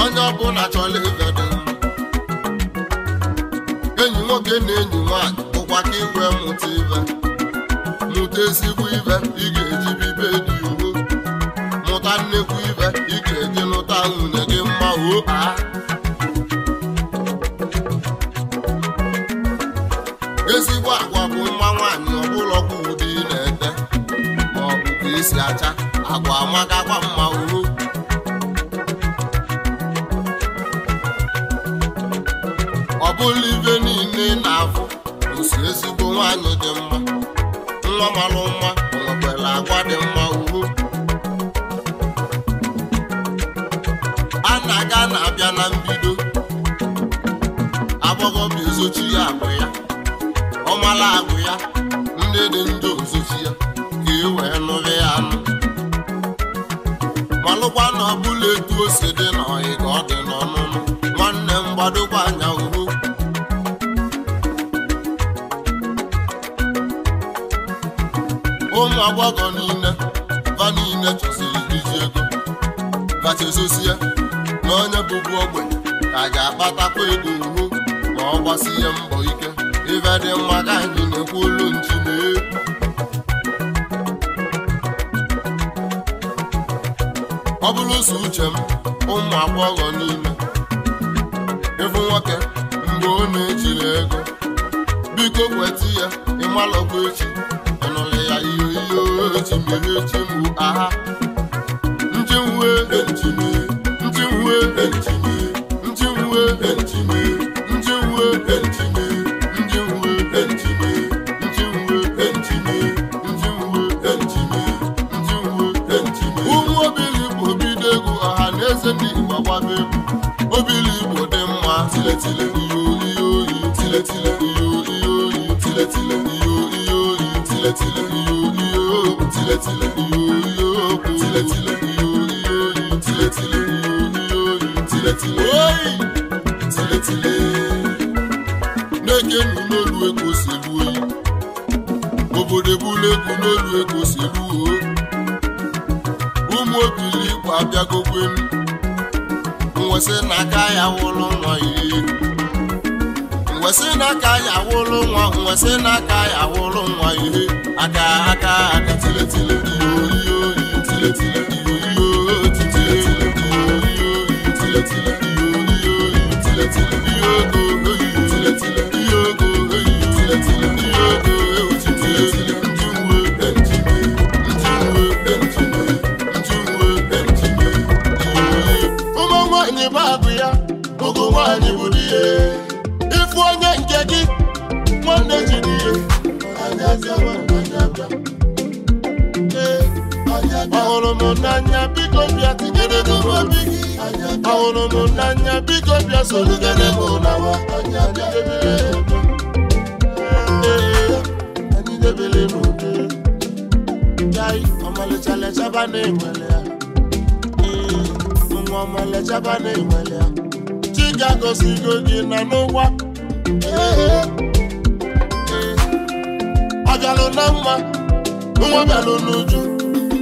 onye ọbụla chọrọ ibe dị enyi nwoke na enyi nwaanyị bụkwa ka iwe mụta ibe mụta ezigbo ibe ị ga-eji bibe ike gị lụta nwunye gị mma o ezigbo agwa bụ mma nwaanyị ọbụla ụdị ị na-ete ma ọ bụ ka acha agwa amakakwa mma o ọ bụla ibe niile na-afụ osi ezigbo nwaanyị dị mma nwa mara mma nwekwara agwa dị mma ka a na-abịa na mbido bụ ezochi ya agwụ ya ọ ọmala agụ ya nne dị ndụ ozochi ya ka e wee nụrị ya anụ malụkwa na ọ bụla etu o si dị n'ọyị ka ọ dị n'ọnụnụ nwanne m gbadokwa anya oho ụmụ agbọghọ niile va niile chọsiri iji ego ya. na onye bụbu ogbenye ka ga-akpatakwa ego ihu ma ọ gbasie mbọ ike ife dị mma ka anyị na-ekwu olu nchi na ọ bụrụ ụzọ uche m ụmụ agbọghọ niile ịbụ nwoke mgbe ọ na-ejiri ego biko kweta ya ịmalọkwa echi ọnụlụ ya ihe ihe ochi mere echi mgbu aha njiwe nchimiri way, n'olu ego silu o ụmụ obili igwe abịagokwe m mwesị n'aka ya wụlụ nwa iri mwesị n'aka ya wụlụ nwa mwesị n'aka ya wụlụ nwa ihe aka aka aka tiletile iyo iyo iyo tiletile iyo iyo titile iyo iyo tiletile iyo iyo iyo tiletile ahụrụ n'anya biko bịa tinyere m gị ahụrụ m n'anya biko bịa sorugere m n'awa anyị debere n'ude jai ọmalịcha na ya nwa ọmalịchaba na ya chi ga gị na n'ụwa ọ bịalụ na mma nwa bịalụ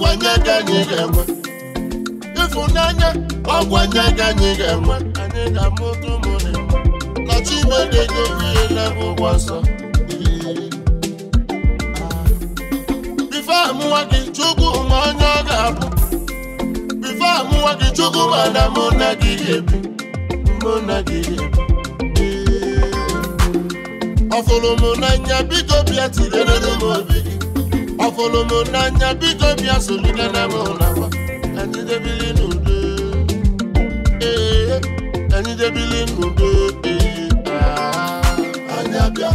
ọgwanye ka anyị ga-enwe ịfụnanya ọgwanye ka anyị ga-enwe anyị ga-amụta ụmụ na Chineke ga-enye ihe n'ebe ụgwọ nsọ bife gị Chukwu ma onye ọ ga-abụ bife amụwa gị Chukwu mana mụ na gị ga-ebi mụ na gị ga-ebi ọfụrụ m n'anya biko bịa tinyere m obi gị ọfụlụ m n'anya biko bịa solina na m ụlọma anyị debili n'udo ee anyị debili n'udo ee anyị bịa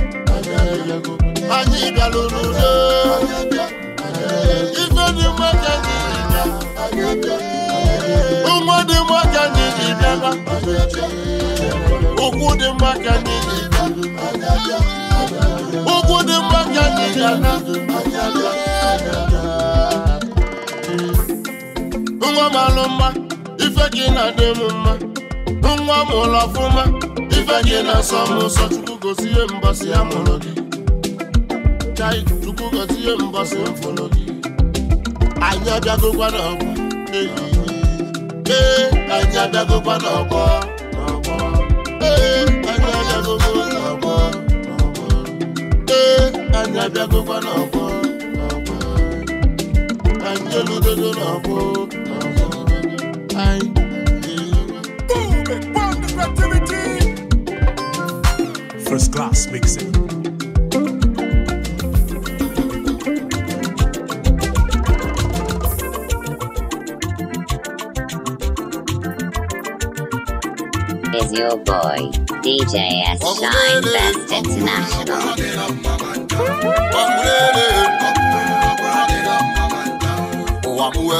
anyị bịalụ n'udo ife dị mma ka anyị bịa ụmụ dị mma ka anyị ji bịaba ụkwụ dị mma ka anyị ji ụkwụ dị mma ka anyị ji ana nwa m alụ mma ife gị na-adị m mma nwa m ụlọ ọfụma ife gị na-asọ m ụsọ chukwu gosi ihe mbọsị ya mụrụ gị chai chukwu gosi ihe mbọsị mfụrụ gị anyị abịagokwa n'ọgbọ ehihie ee anyị abịagokwa n'ọgbọ n'ọgbọ ee anyị abịagokwa n'ọgbọ n'ọgbọ ee First class mixing. Is your boy, DJ S. Shine Best International ọmụrere ụwa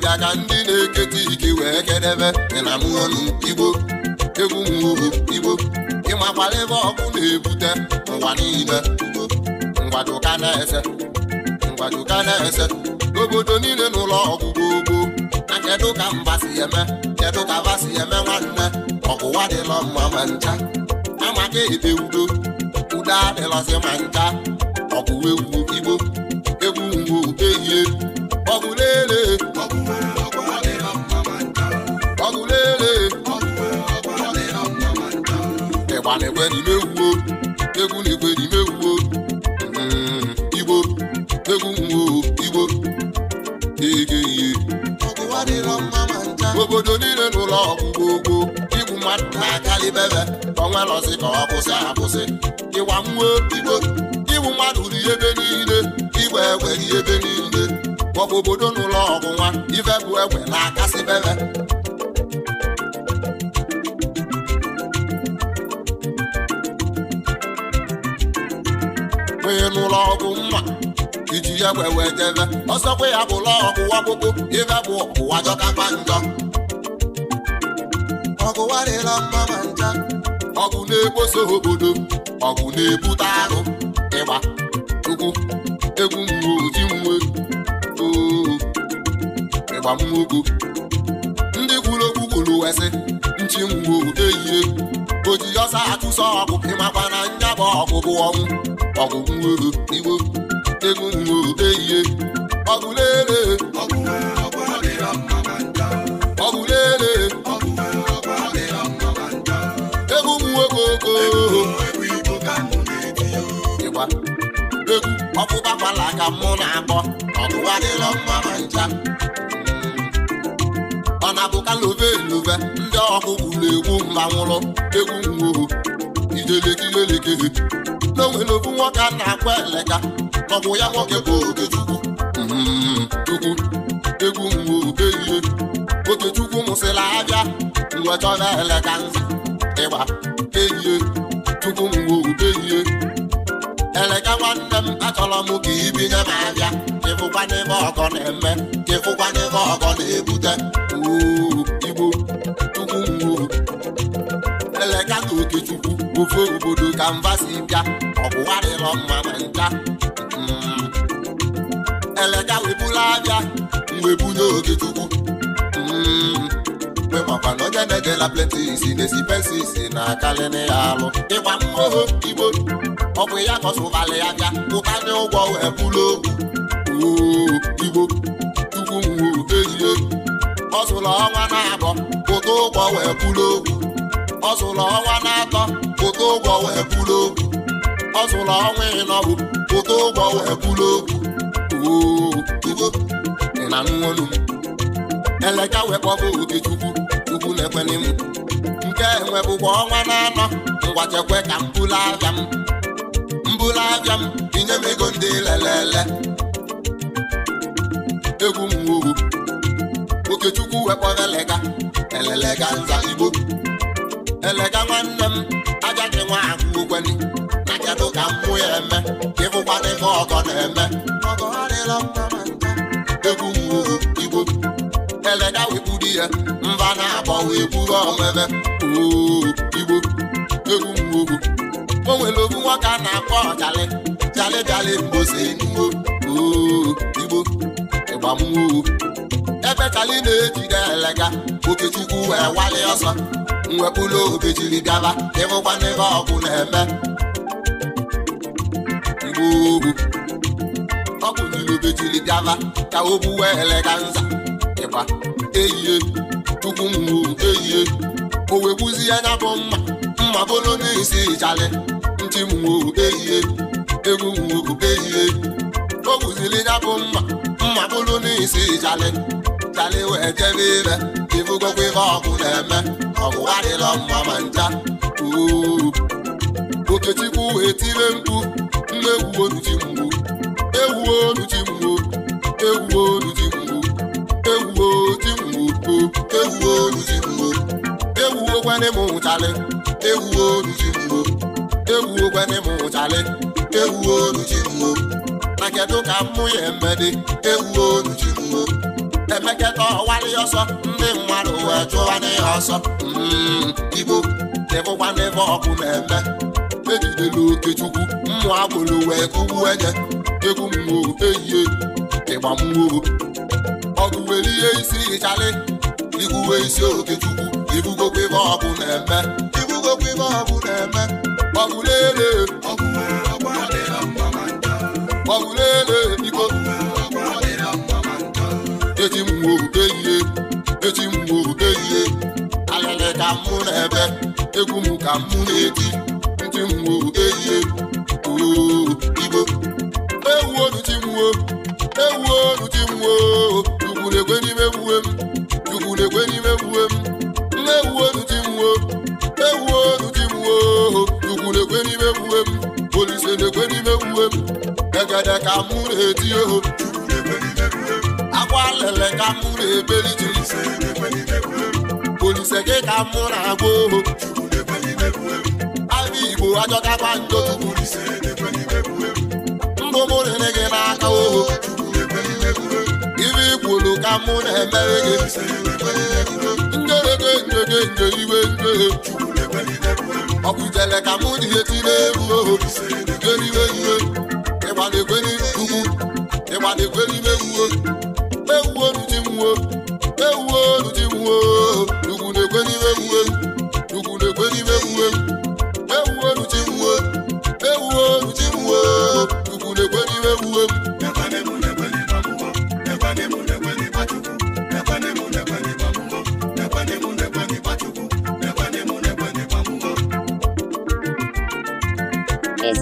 ọbịa ka ndị na-eketa ike wee kedebe ịnamọnụ igbo egwu mwobo igbo ịmakwara ebe ọkụ na-ebute ụwa niile ngwadoka na-ese ngwadoka na-ese obodo niile n'ụlọ ọgụgụ ogbo na kedụ ka mba si eme kedụ ka ba si eme nwanne ọgwụwa dịlọ mma ma ncha amaka ebe udo udo adịlọzi ma ncha ọgụwa egwu igbo egwu mgbo ehi ọfala egwerimewu egwu na egwerimewu igbo egwu igbo egeye obodo niile n'ụlọ ọgwụgwọ ogbo igbu mmadụ na-akalibebe onwelozi ka ọ kwụsị akwụsị ịwa nwa igbo igbu mmadụ ri niile igbe egweri ebe niile ọbụ obodo n'ụlọ ọgwụ nwa ife bụ egbe na-akasị bebe ị nụlọ ọgwụ mma iji ya wee wee debe ọsọkwa ya bụla ọgwụ gbogbo ibe bụ ụwa jọkapa njọ ọgụwa dịla mma ma nja ọgụ na-ekposo obodo ọgụ na-ebute arụ ịgba ugwu egwu nwe oji nwe ịgba mwogo ndị kwuru okwu kwuru wesị nchi nwe odeyie oji ọsa achụso ọgwụ ịmakwa na nya bụ bụ ọnwụ ọgụ nwere ego nwere eyiye ọgụ lele ịgba egwu ọkpụkpakwala ka mụ na-akpọ ọgụ adịrọ mma na ncha ọ na-abụka love ndị ọkụ gwuru egwu mgbanwụrụ egwu nwoho ijelekilelekere na o nwere ofu nwoke a na-akwa eleka ọgwụ ya nwoke bụ okechukwu chukwu egwu mgbe ihe okechukwu mụsịla abịa mgbe chọrọ eleka nzu ịgba ehie chukwu mgbe ehie eleka nwanne m achọrọ m ka ibinye m abịa ịfụkwa n'ebe ọgọ na-eme ka ịfụkwa n'ebe ọgọ na-ebute igbo chukwu mgbe eleka na okechukwu ofe obodo ka mba si bịa ọgụwarịrọ mma na ncha hmm. elega webula abịa mgbe bunye oge chukwu hmm. mgbe makwa na onye na-edela plenti si na-esi pensi si na akalịna ya alụ ịgba mmụọ igbo ọ bụ ya kọsụbalị ya bịa ụkanye ụgwọ wee bụlụ igbo ọ ọnwa na-abọ ụgwọ wee bụlụ ogwu ọzụlọ ọnwa na-atọ pụta ụgwọ wee kwuru okwu ọ zụrụ ọnwa ịnọbụ pụta ụgwọ wee kwuru okwu ị na nwolu m eleka wee wekpọbụ okechukwu chukwu na-ekwene m nke enwebụkwa ọnwa na-anọ ngwa chekwe ka m bụla abịa m mbụla abịa m inye m ego ndị lelele egwu m okechukwu wekpọrọ eleka elelega nza igbo elega nwanne m aja gị nwa ahụ ukweli na kedụ ka m mmụọ ya eme ka ịfụkwana ife ọgọ na-eme ọgọ adịla mma na nta egwu mụrụ igbo elega wepụrụ ya mba na-abọ wee buru omebe igbo egwu mụrụ o nwere obu nwoke a na-akpọ ọjalị jalị jalị mbosi nuwo igbo ịgbamwo ebe jalị na-ejide elega okechukwu wee wali ọsọ mwepụlụ obi jiri gaba ịhụkwana ebe ọgụ na-eme mgbe ugwu ọgwụ nyiri obi jiri gaba ka o buwe eleka nza ịgba e eyie tupu mwu eyie o wegbuzi ya nya bụ mma mma bụlụ n'isi ịchalị ntị mwo eyie egwu mwo eyie o gbuzili ya bụ mma mma bụlụ n'isi ịchalị chalị wee jebe ire ịbụgokwa ebe ọgụ na-eme ọgwụwa dịlọ mma ma nja okechukwu etire mkpu mmegwu onuji mgbu egwu onuji mgbu egwu onuji mgbu egwu oji mgbu egwu onuji mgbu egwu ogwene m nwụchalị egwu onuji mgbu egwu ogwene m nwụchalị egwu onuji mgbu na kedu ka mmụ ya emedị egwu onuji mgbu emeketa ọwalị ọsọ ndị mmadụ wee chụwa n'ihe ọsọ mm, igbo na-ebụkwana ọkụ na-eme ejidela okechukwu mmụ agboro wee kụgbu enye egwu mmụọ ehihie ịgba mmụọ ọgụ were ihe isi ịchalị igwuwe isi okechukwu ibugokwa ebe ọkụ na-eme ibugokwa ebe ọkụ na-eme ọgụ na-ele ọgụ na-ele biko eji mmụọ eji mgbu ehihie alịlị ka mụ na-ebe egwu m ka mụ na-eti ntị mgbu ehihie oigbo ewu oluchi mwo ewu oluchi mwo chukwu na-ekwe n'ime mwue m chukwu na-ekwe n'ime mwue m ewu oluchi mwo ewu oluchi mwo chukwu na-ekwe n'ime mwue m olise na-ekwe n'ime mwue m egede ka mụ na-eti oho chukwu na-ekwe n'ime mwue m agwa lele ka mụ na-ekpeli olise gị ka mụ na-agba oho abụ igbo njọ mbụ mụ gị n'aka oho ibe ikwulu ka mụ na-emere gị njere njere nje iwe ka mụ egwu oho iwe ịgbana ugwu ewuo di nwuo ewuo di nwuo ugwu na-ekwe n'ime ewuo ugwu na-ekwe n'ime ewuo ewuo di nwuo ewuo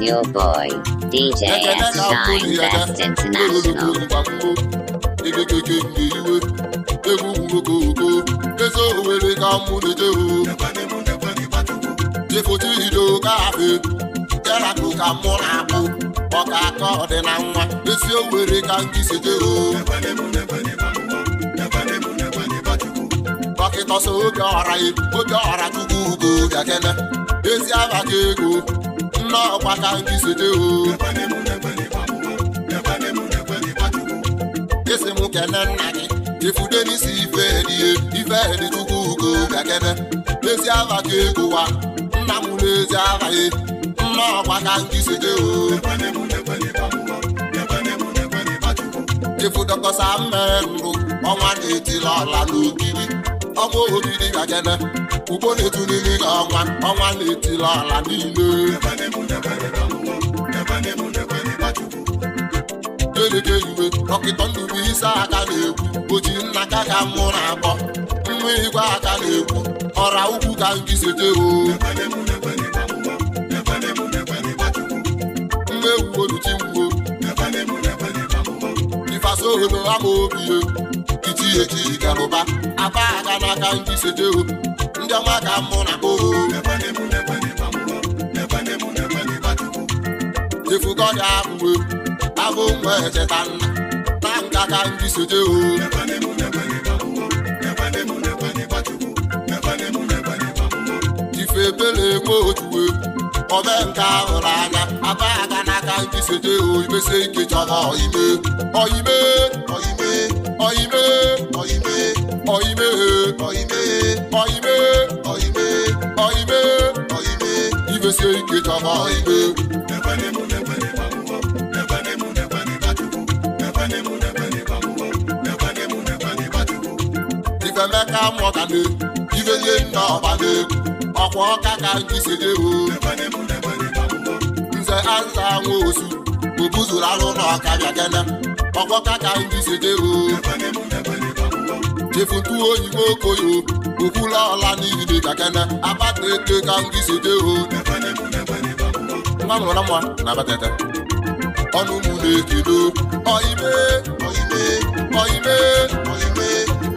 your boy DJ S Shine Best International? okeke nke iwe egwu okoko eze owere ka mụ na-eje efote ido ka afe yarakụ ka mụ na-akpụ ọka aka ọdị na nwa esi owere ka ndị si jee dọkịta ọsọ oge ọra oge ọra chukwu ugo gakene ezi abata ego nna ọkwa ka ndị si jee nke na nna gị ifude n'isi ife ihe ife dịtukwugo gakebe n'ezi aha ka egụwa nna m n'ezi aha ya nna ọgwa ka nkisije ifudokọsa mmere ndụ ọnwa na-etili ọla n'ogidi ọnwa obidi gakene ugbo na-etu n'ili ọnwa ọnwa na-etili ọla niile eluke iwe dọkịta isi aka na-ekwu oji nna ka ka mụ na-akpọ nwa igwe aka na-ekwu ọra ukwu ka ngizete oo nwa ewu oluchigbuo ifasoholo ama obiye iti eji garụba aba aka n'aka ngizete o ndị ọma mụ na oo efugo abụ nwa echeta na nga ka ndị soje o ife ebere enwe otuwe ọbe nke ahụrụ anya aba aka n'aka ndị soje o imesi ike chọrọ ọime ọime imesi ike chọrọ na mọgane ibenye nna ọbana ọka ka nze na ka chefutu oyibo okoyo okwula ọla abata ka na na na-ekedo ọime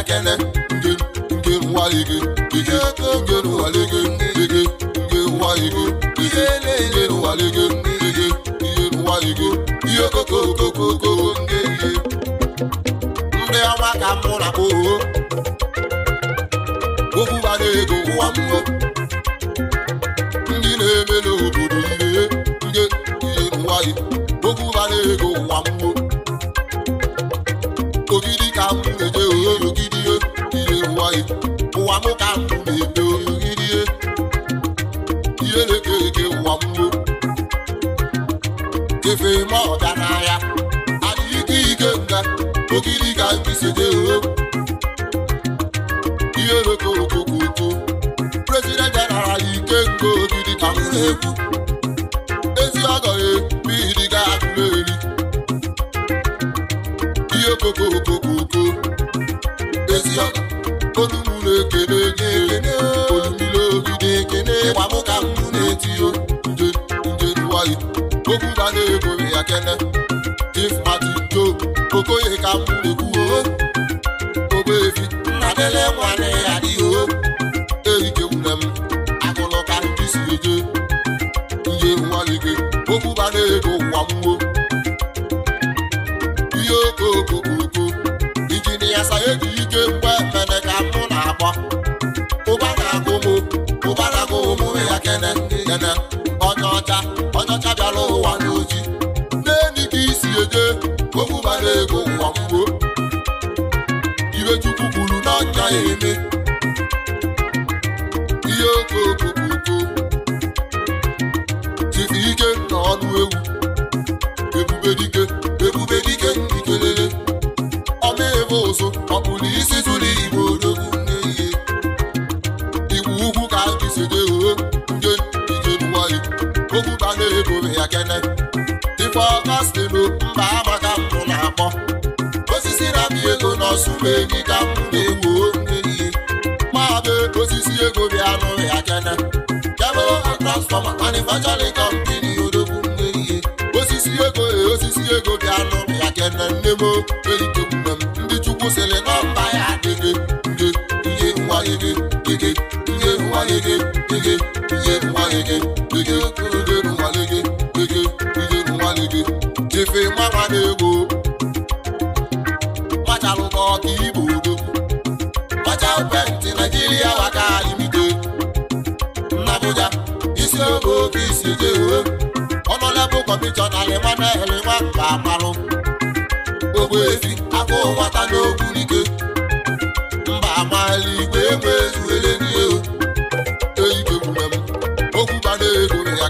akele nke nke nwale gị ike nke nwale gị ike nke nwale gị ike nke nwale gị ike ihe nwale gị ihe okokokokoko nke ihe ndị ọma ka mụ na kpoo okwu ego ụwa mmụọ ezi ọgọ mmiri ga-agụrụ eri ihe koko okoko ezi ọgọ olumụ na-ekene nye ekene olumile obi na-ekene ịgba m ka m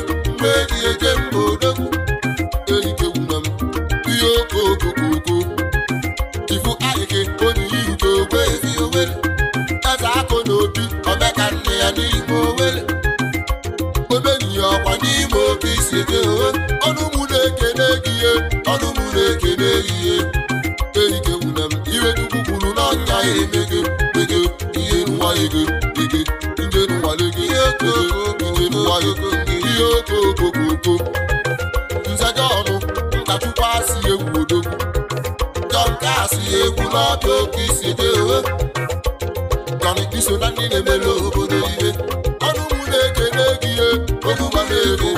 mgbe eji eje mba odogwu elikegwuna m ihe okookokoko ifu ayike onye iruke ogwe ezi eze akụ na obi omeka nne ya n'ime owere ya ọkwa n'ime oke isi eke ọnụ na-ekene gị nwere ọnụ na-ekene gị ihe elikegwuna m ire chukwu kwuru na ọnya ya emego ego ihe nwa ego ego nje nwa ego ego nwa ego egwu n'aka oke isi dị gọmiti so na ndị na-emere obodo ihe ọnụ mụ na-ekene gị ihe ogugbo na-ego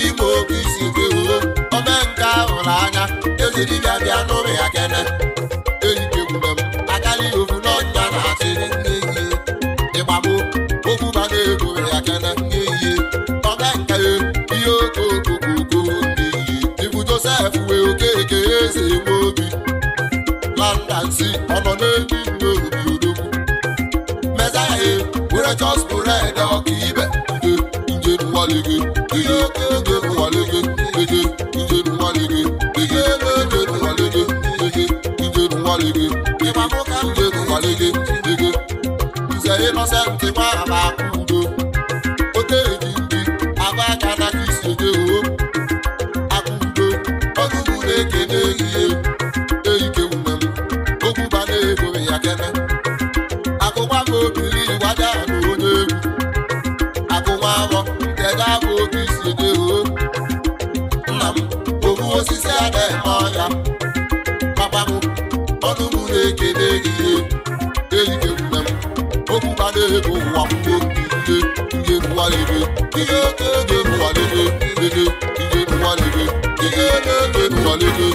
n'ime oke isi gị oo ome nke ahụ na anya ezi dibịa bịa n'ụmụ ya kene eyikekwule m akarị ovu n'ọnya na-achị n'ehihie ịgbagbo okwu bana ego ya kene n'ehihie ome nke ihe okookokoko n'ehihie ibu josef wee okeke eze nwe obi landansi ọnọ n'elu nne obi odogwu mezaya were ọka ibe. Digi, digi, good. ihe eke ege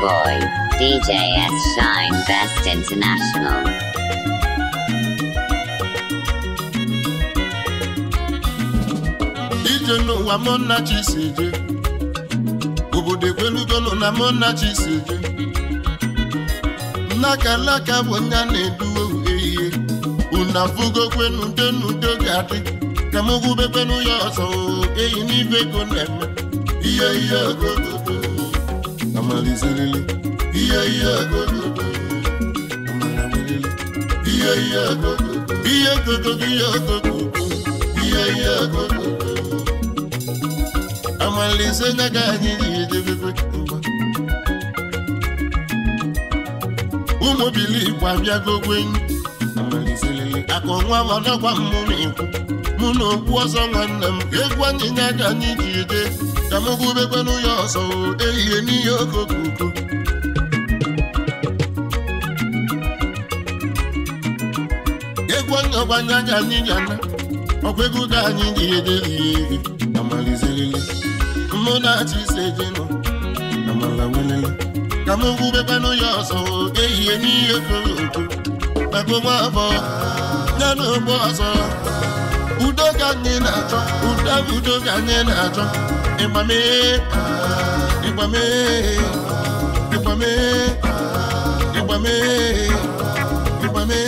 boy, DJ S. Shine Best International. ije no mụ nna chi si eje obodo ekwelugonụ na mona nna chi si eje nnaka laka bụ nga na una fugo ndenudo ga-adị ka m gwubekwenu ya ọzọ eyi n'ibe ego na-eme ihe ihe ogogo malizilili iya iya gogo iya iya gogo iya gogo iya gogo iya iya gogo amalize nyaga anyị ijebebe mgba ụmụ bilikwu abịago amalizilili akọ nwa m ọdọgwa mmụrụ ikwu mụ na okwu ọzọ nwanne m egwu anyị ka m gụbekwenu ya ọsọ ehihie n'ihe okokoko egwu anya ọgbanye anya anyị yana ọkwa ego ka anyị ji ede ihe amalizerele mụ na-achị ise jenụ amala welele ka m gụbekwenu ya ọsọ ehihie n'ihe okokoko maka nwa abụọ ya na ogbo ọzọ udo ka anyị na-achọ udo udo ka anyị na-achọ Nípamé, nípamé, nípamé, nípamé, nípamé,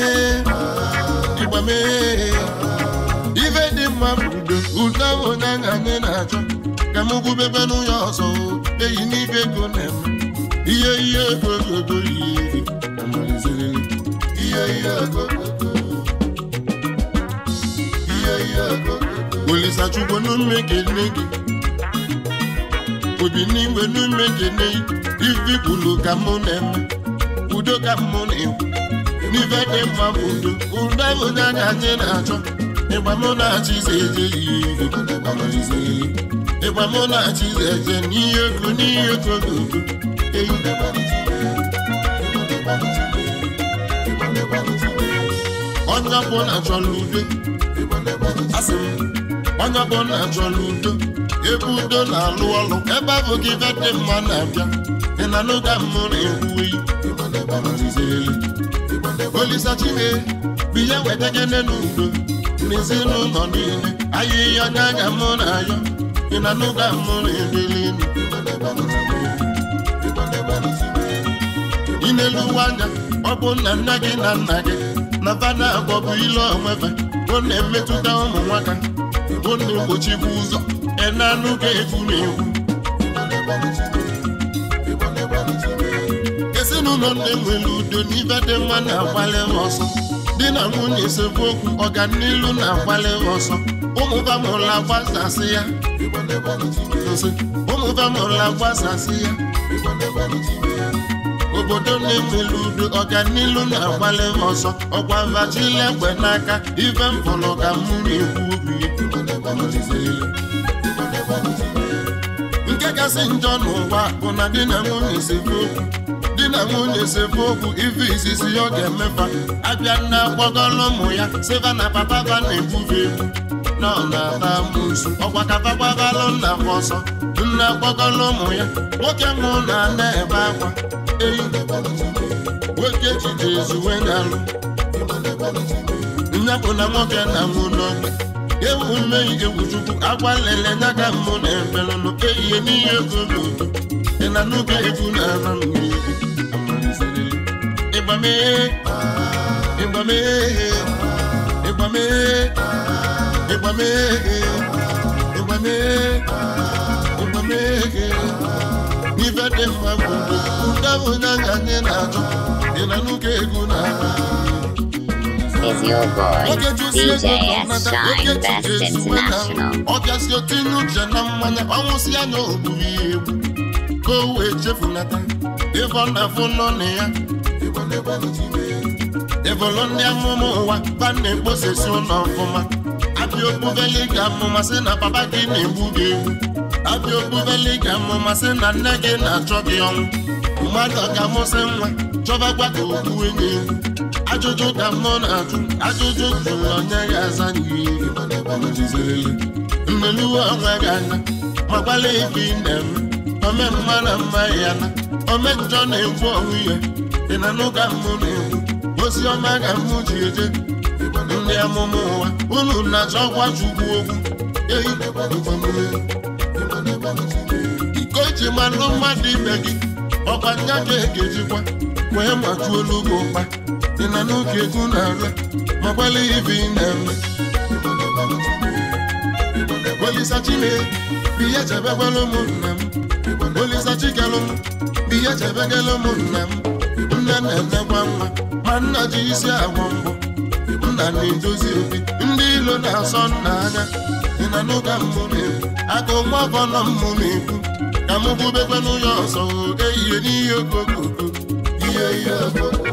nípamé. Ife dị mma mbido, ụtọ bụ na anyị na-achọ. Ka m gwubebe n'ụyọ ọsọ, eyi n'ife ego na-em. Ihe ihe ego ego ego ihe, ihe ihe ego ego. Olisa chukwu n'ume gị nne gị. obi n'inwe n'ume dị n'ivi kwulu ka mụ na udo ka mụ na-enwe n'ife dị mma bụ udo udo ahụ anyị na-achọ ịgba mụ na-achị ịgba mụ na-achị eje n'ihe ego n'ihe ego eyi onye ọbụla udo m udo ebe udo na-alụ ọlụ ebe abụ gị ife dị mma na-abịa ị na n'oge mmụ na-ekwuwe olisa chine biya weta gị n'elu udo n'ezinụlọ niile ayịya n'anya mụ na ayọ ị na n'oge mmụ na-edeli Ịna elu ụwa anya ọ bụ nna nna gị na nna gị na bana agwọ bụ ile onwebe ọ na-emetụta ụmụ nwaka ọ na-egbochikwa ụzọ enanu ka efuru ewu ezinụlọ na-enwere udo n'ibe dị mma na-agbalị ọsọ di na nwunye sekwu okwu ọganilu na-agbalị ọsọ ụmụba mụrụ agbasasị ya ụmụba mụrụ agbasasị ya obodo na-enwere udo ọganilu na-agbalị ọsọ ọkwa mbachila egbe n'aka ibe mpụrụ ka mmiri ekwu obi kasị njọ n'ụwa bụ na di na nwunye di na nwunye sebe okwu ife izizi ọ ga-emefa abịa nne akpọgọla ụmụ ya siva na papa ba na-ebubi egwu na ọ na-ata amụsu ọkwa kapagbabalụ nna m ọsọ nne akpọgọla ụmụ ya nwoke mụ na nne ebe akwa eyi nwoke jide ezuwe na alụ nne na nwoke na nwunye ewu mmehie egwuchukwu agwa lele n'aka mmụ na emelụnụ eyihe n'ihe egwu dị na n'oge egwu na ala mmiri ịgbamee ịgbamee ịgbamee ịgbamee ịgbamee ịgbamee ife dị mma bụ ụdabụ na nga anyị na-achọ dị na n'oge egwu na ala is your boy, DJ S Shine Best International. Ọ bịasị otu inu uche na mmanya, ọnwụsị ya na ogburu ya Ka o wee chefunata, ịfọ na-afụ n'ọnụ ya. Ebolo ndị ụwa, na ụlọ ga amụma sị na papa gị na-egbu gị egwu. ga amụma sị na nne gị na-achọ gị ọnwụ. Mmadụ ga nwa, chọba ka o ajụjụ ka m nọ na-ajụ ajụjụ jụrụ onye ga-aza n'ihi nneluwe onwe gị anya gbalị ibi nne m ome mma na mma ya na ome njọ na-egwu onwe ya ị na n'ụka mụ na-egwu ozi ọma ga mụ ji eje ndị amụma ụwa unu na-achọ ọgwa chukwu okwu iko ji manụ mmadụ ibe gị ọkwa nya e ga-ekejikwa wee majuo n'ugbo mkpa ị nọ n'oge egwu na-ara ma gbalịghị ibi na-ara Olisa Chile, biya chebe gwalụ ụmụnna m Olisa Chigalụ m, biya chebe galụ ụmụnna m Nne na-enekwa mma ma nna ji isi agwọ mbụ, nna na-edozi obi ndị ilo na-asọ nna anya ị na n'ụka mbụ na-ekwu aka ụmụ ọkọ nọ mmụ na-ekwu ka m bubekwa n'ụlọ ọsọ ehihe n'ihe okoko ihe ihe okoko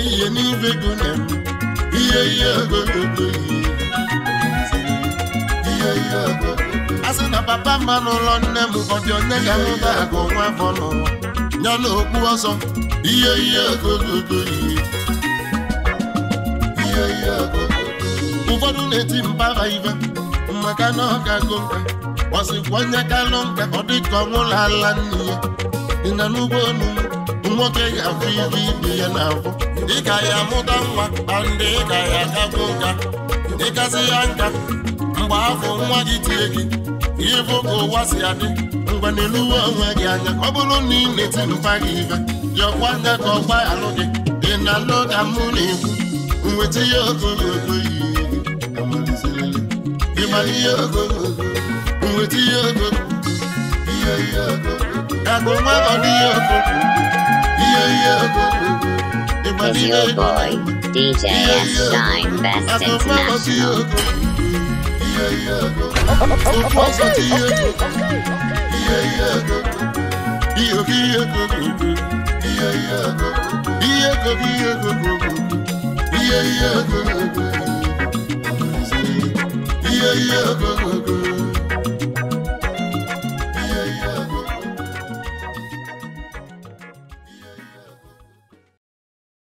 ihe n'ibe ego na ihe ihe ego ego ihe ihe ego asị na papa mma n'ụlọ nne m ụfọdụ onye ga ahụta agụ nwa afọ nọ nyana okpu ọzọ ihe ihe ego ihe ihe ego ụfọdụ na-eti mbara ibe maka na ọ ga-agụ nka onye kalụ nka ọ dị ka ala nne ya dị na n'ugbo olu nwoke ga-afụ ibe ibe ya n'afọ ka ya mụta nwa ị ka ya akagbu nka ịkasị ya nka mgbe afọ nwa gị tie gị bụ ka ụwa si adị mgbe n'eluwe eluwe onwe gị anya ọ bụrụ na ị na-eti mpa gị ya jọkwa nga ka ọgba alụ gị dị na loda mụ na-ekwu nweta ihe ogologo ihe ogologo nweta ihe ihe ihe nwa dị ihe ihe ihe Is your boy, DJ Shine, best international. Yeah, yeah,